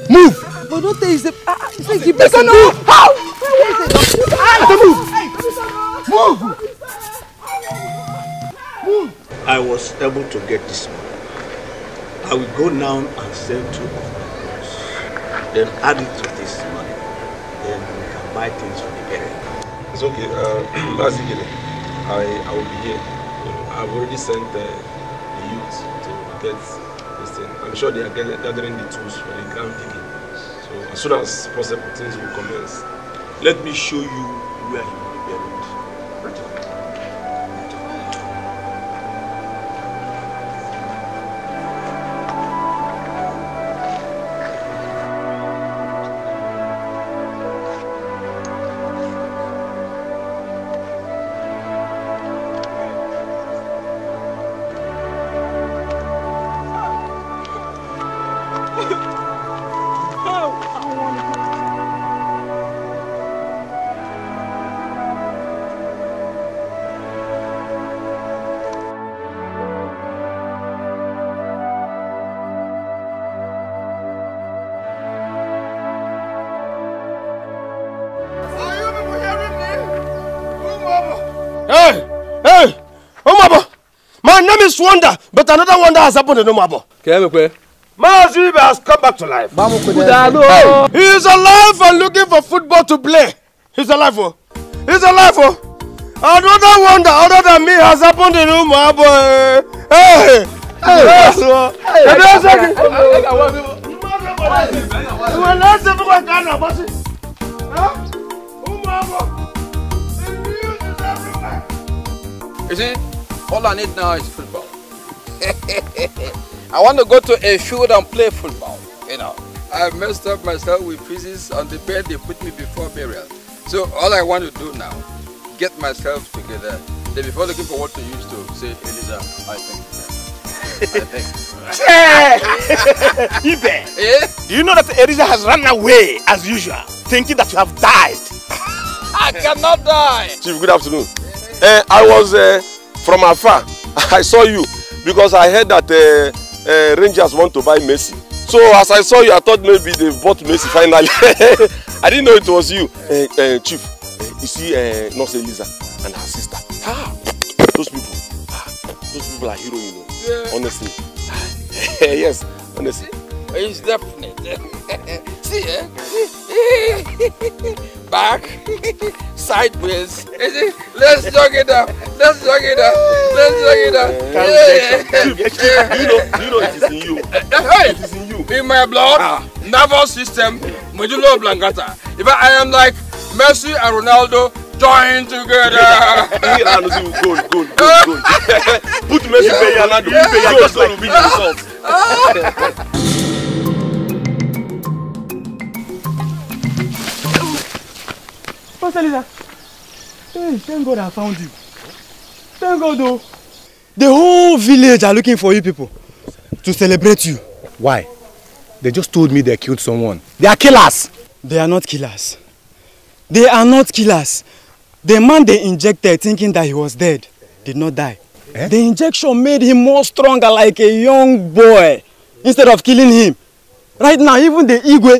S2: Move! But don't tell you, the, uh, you say the person. Move!
S1: How? Where is
S2: it? Ah, move! Move! Move! I was able to get this money. I will go now and sell two of my clothes. Then add it to this money. Then we can buy things for it's okay. Uh, I, I will be here. I've already sent the youth to get this thing. I'm sure they are gathering the tools for the ground digging. So as soon as possible, things will commence. Let me show you where Hey, hey, Umabo. My name is Wonder, but another wonder has happened in Umabo. Kemekwe. Mazib has come back to life. Hey, he is alive and looking for football to play. He is alive, oh. is alive, oh. Another wonder other than me has happened in Umabo. Hey, hey, yes, oh. Hey, yes, oh. Hey, yes, oh. Hey, yes, oh. You see, all I need now is football. I want to go to a field and play football, you know. I messed up myself with pieces on the bed they put me before burial. So all I want to do now, get myself together. Then before looking for what to use to say, Eliza, I think. I think. Ibe, eh? do you know that Eliza has run away as usual, thinking that you have died? I cannot die. Chief, good afternoon. Uh, I was uh, from afar. I saw you because I heard that uh, uh, Rangers want to buy Messi. So as I saw you, I thought maybe they bought Messi finally. I didn't know it was you, uh, uh, Chief. Uh, you see, uh, Nurse Elisa and her sister. Ah, those people, ah, those people are heroes, you know. Yeah. Honestly, yes, honestly. It's definite. See, eh? Back, sideways. Let's jog it up. Let's jog it up. Let's jog it up. Do you know, you know, it is in you. Hey, it is in you. In my blood, ah. nervous system, medulla oblongata. If I, I am like Messi and Ronaldo, join together. Put Messi yeah. Pay Ronaldo, yeah. pay Ronaldo, just like we Pastor Lisa, hey, thank God I found you. Thank God though. The whole village are looking for you people to celebrate you. Why? They just told me they killed someone. They are killers. They are not killers. They are not killers. The man they injected thinking that he was dead did not die. Eh? The injection made him more stronger like a young boy instead of killing him. Right now, even the Igwe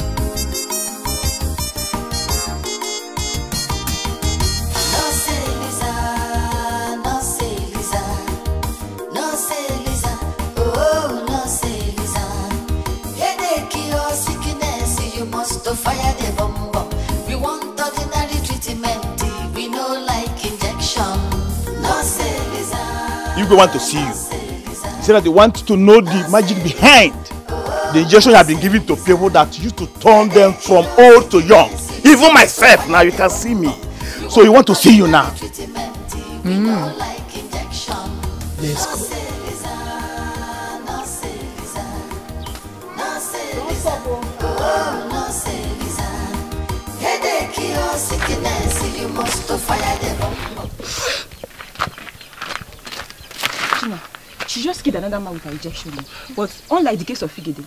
S3: so fire the We want ordinary treatment, we no like injection. No
S2: You go want to see you. He said that they want to know the magic behind the injection have been given to people that used to turn them from old to young. Even myself, now you can see me. So he want to see you now.
S3: Mm. Let's go. Don't stop. Oh. Oh,
S1: she just killed another man with her rejection. But unlike the case of Figede,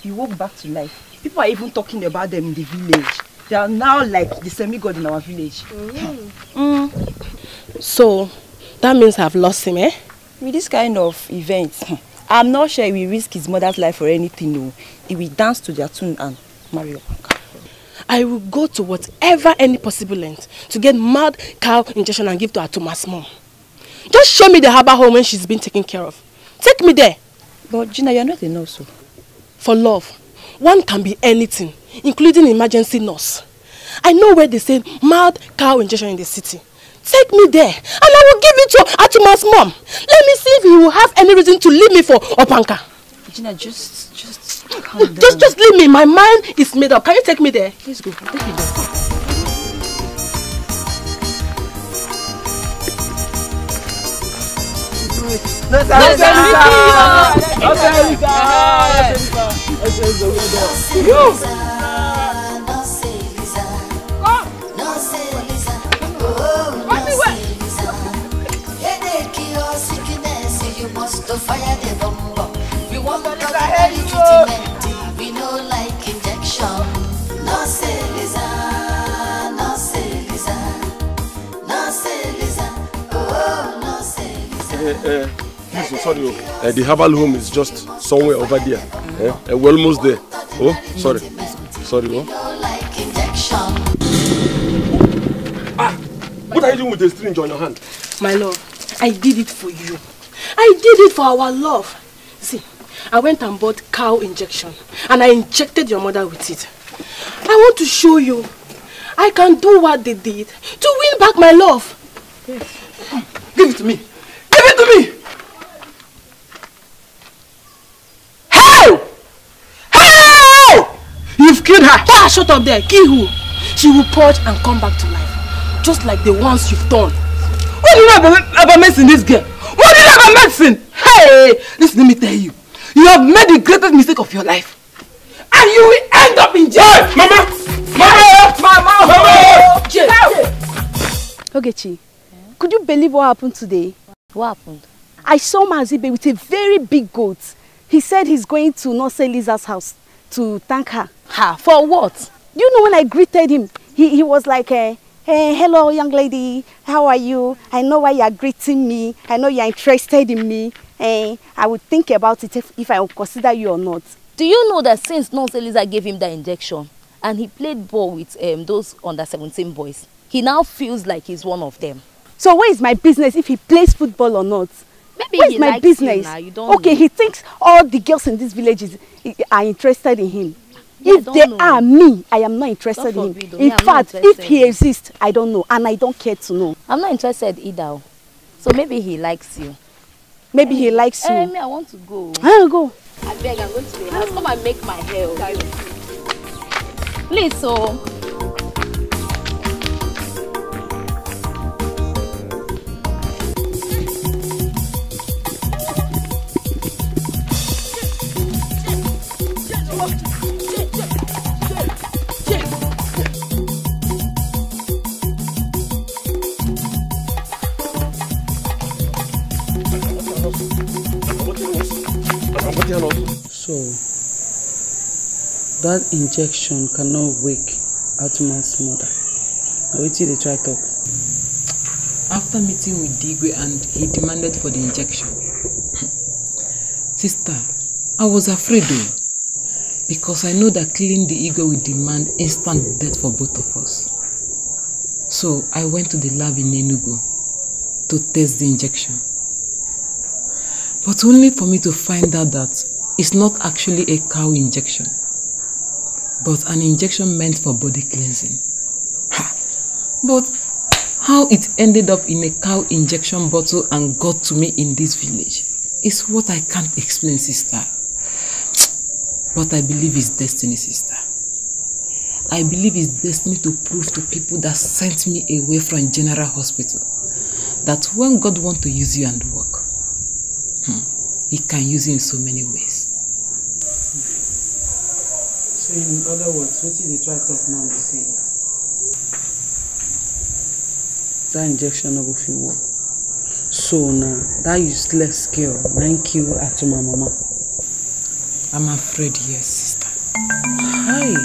S1: he woke back to life. People are even talking about them in the village. They are now like the semi-god in our village. Mm. Mm. So, that means I've lost him, eh? With this kind of event, hmm. I'm not sure he will risk his mother's life for anything, no. He will dance to their tune and marry I will go to whatever any possible length to get mad cow injection and give to her Thomas mom. Just show me the harbor home when she's been taken care of. Take me there. But Gina, you're not a nurse. So. Oh. For love, one can be anything, including emergency nurse. I know where they say mad cow injection in the city. Take me there and I will give it to Atuma's mom. Let me see if you will have any reason to leave me for Opanka.
S3: Gina, just, just
S1: just, just leave me. My mind is made up. Can you take me there? Please
S3: go. Take me there. Let's go. Let's go. Let's go. Let's go. to fire the bomb. treatment. We
S2: Please, sorry, uh, the herbal home is just somewhere over there. Mm. Uh, we're almost there. Oh, sorry, sorry. Oh.
S3: Ah, what are
S2: you doing with the syringe on your hand? My love,
S1: I did it for you. I did it for our love. See, I went and bought cow injection and I injected your mother with it. I want to show you I can do what they did to win back my love.
S3: Yes.
S2: Give it to me. Give it to me! Hey! Hey! You've killed her. shut up there. Kill who? She will purge and come back to life. Just like the ones you've done. What do you ever, about, about medicine, this girl? What do you ever about medicine? Hey! Listen, let me tell you. You have made the greatest mistake of your life. And you will end up in jail. Hey, mama! Mama! Mama! Mama! Jail!
S1: Ogechi, could you believe what happened today? What happened? I saw Mazibe with a very big goat. He said he's going to Nonsense Liza's house to thank her. Her? For what? You know when I greeted him, he, he was like, uh, eh, hey, eh, hello young lady, how are you? I know why you are greeting me. I know you are interested in me eh, I would think about it if, if I would consider you or not. Do you know that since Nurse Eliza gave him that injection and he played ball with um, those under 17 boys, he now feels like he's one of them. So where is my business if he plays football or not? Maybe where is my business? okay, know. he thinks all the girls in this village is, are interested in him. Yeah, if they know. are me, I am not interested in him. In yeah, fact, if he exists, I don't know and I don't care to know. I'm not interested either. So maybe he likes you. Maybe he likes you. Hey, eh, me, I want to go. I'll ah, go. I beg, I'm going to I house. Come and make my hair. Please, so. Oh.
S2: So that injection cannot wake Atman's mother. Now, wait till they try talk. After meeting with Digwe and he demanded for the injection, sister, I was afraid though, because I know that killing the ego
S1: will demand instant death for both of us. So I went to the lab in
S2: Enugu to test the injection. But only for me to find out that is not actually a cow injection, but an injection meant for body cleansing. Ha. But how it ended up in a cow injection bottle and got to me in this village is what I can't explain, sister. But I believe it's destiny, sister. I believe it's destiny to prove to people that sent me away from General Hospital that when God wants to use you and work, hmm, he can use you in so many ways. So in other words, what you dey try talk now The same. that injection no go fit work. So now, that useless girl thank you, kill my mama. I'm afraid yes, sister.
S3: Hi.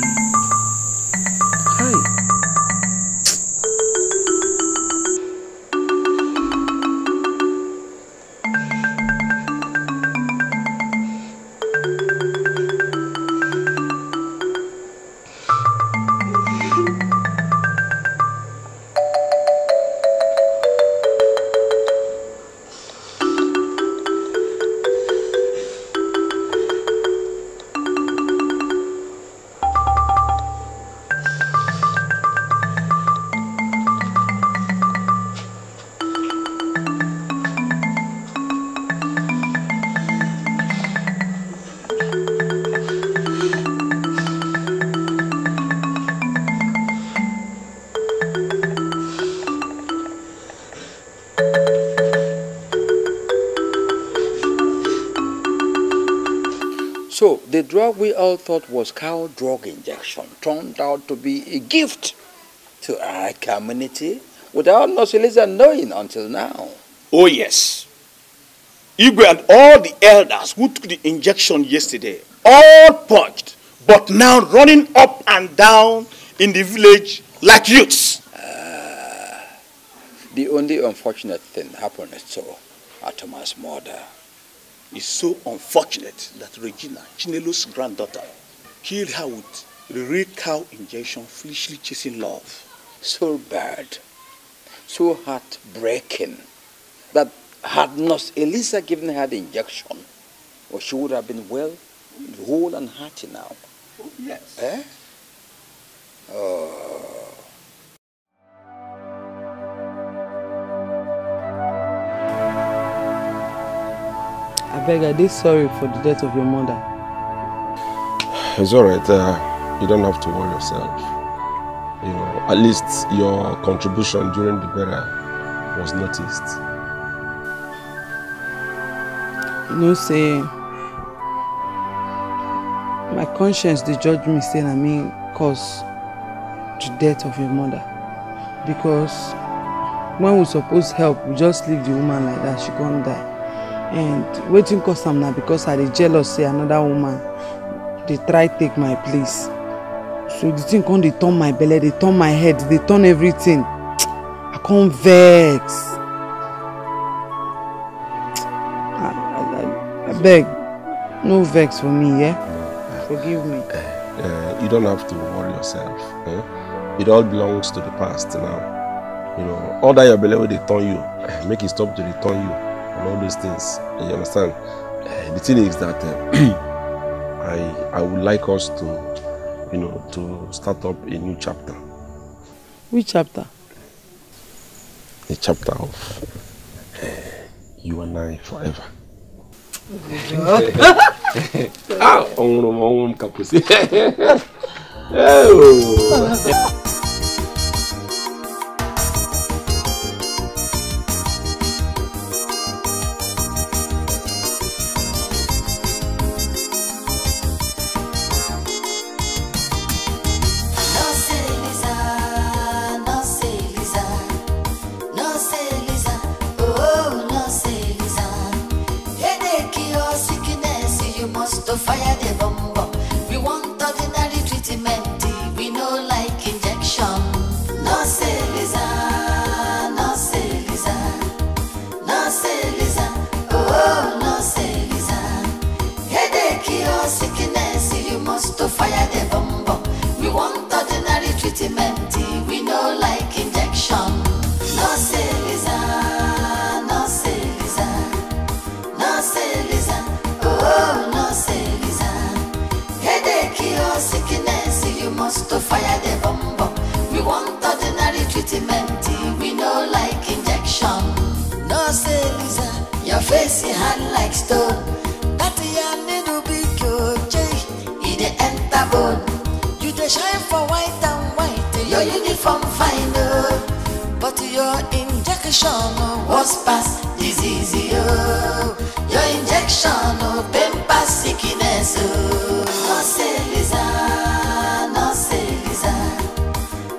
S2: what we all thought was cow drug injection turned out to be a gift to our community without Nosilisa knowing until now. Oh, yes. Igwe and all the elders who took the injection yesterday, all punched, but now running up and down in the village like youths. Uh, the only unfortunate thing happened so at Thomas' murder. It's so unfortunate that Regina, Chinelo's granddaughter, killed her with the real cow injection, foolishly chasing love. So bad, so heartbreaking, that had not Elisa given her the injection, well, she would have been well, whole and hearty now. Oh, yes. Eh?
S3: Oh.
S2: I beg, I did sorry for the death of your mother. It's alright, uh, you don't have to worry yourself. You know, at least your contribution during the burial was noticed. You know, say, my conscience, the judge me saying I mean cause the death of your mother. Because when we supposed help, we just leave the woman like that, she can't die. and wetin cause am na because i dey jealous say another woman dey try take my place so the thing come dey turn my belle dey turn my head dey turn everything i come vex I abeg no vex for me yeah? Mm. forgive me uh, uh, you don't have to worry yourself eh? it all belongs to the past now you know all that your belle wey dey turn you eh, make e stop to dey turn you and all those things. You understand? Uh, the thing is that uh, I I would like us to, you know, to start up a new chapter. Which chapter? The chapter of uh, you and I forever.
S3: ah, oh. uniform fine, but your injection was past disease, Your injection oh, pain past sickness, No say Lisa, no say Lisa,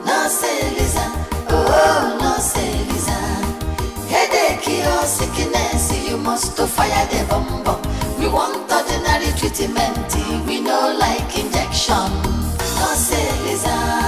S3: no say Lisa, oh, oh no Lisa. Headache or sickness, you must to fire the bomb bomb. We want ordinary treatment, we know like injection. No say Lisa.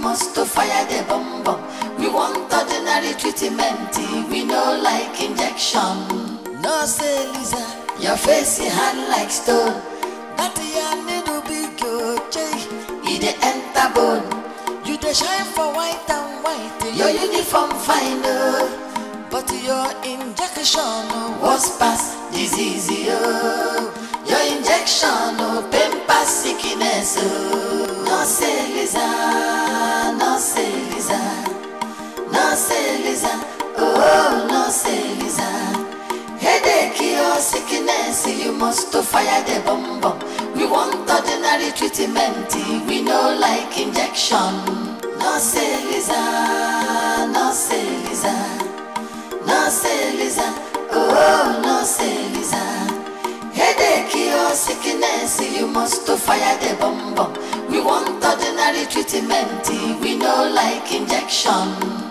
S3: must to fire the bomb bomb. We want ordinary treatment, we no like injection. No say Lisa,
S2: your face is hard like stone.
S3: That your needle be good, okay. It the enter bone. You the shine for white and white. Your uniform fine oh. But your injection oh. was past disease oh. Your injection oh, pain past sickness oh. No say Lisa. No se Nanselisa, oh no se Nanselisa. Headache or oh, sickness, you must to fire the bomb bomb. We want ordinary treatment, we know like injection. No no se se Nanselisa, Nanselisa, Nanselisa, oh no se Nanselisa. Headache or oh, sickness, you must to fire the bomb bomb. We want ordinary treatment, we know like injection.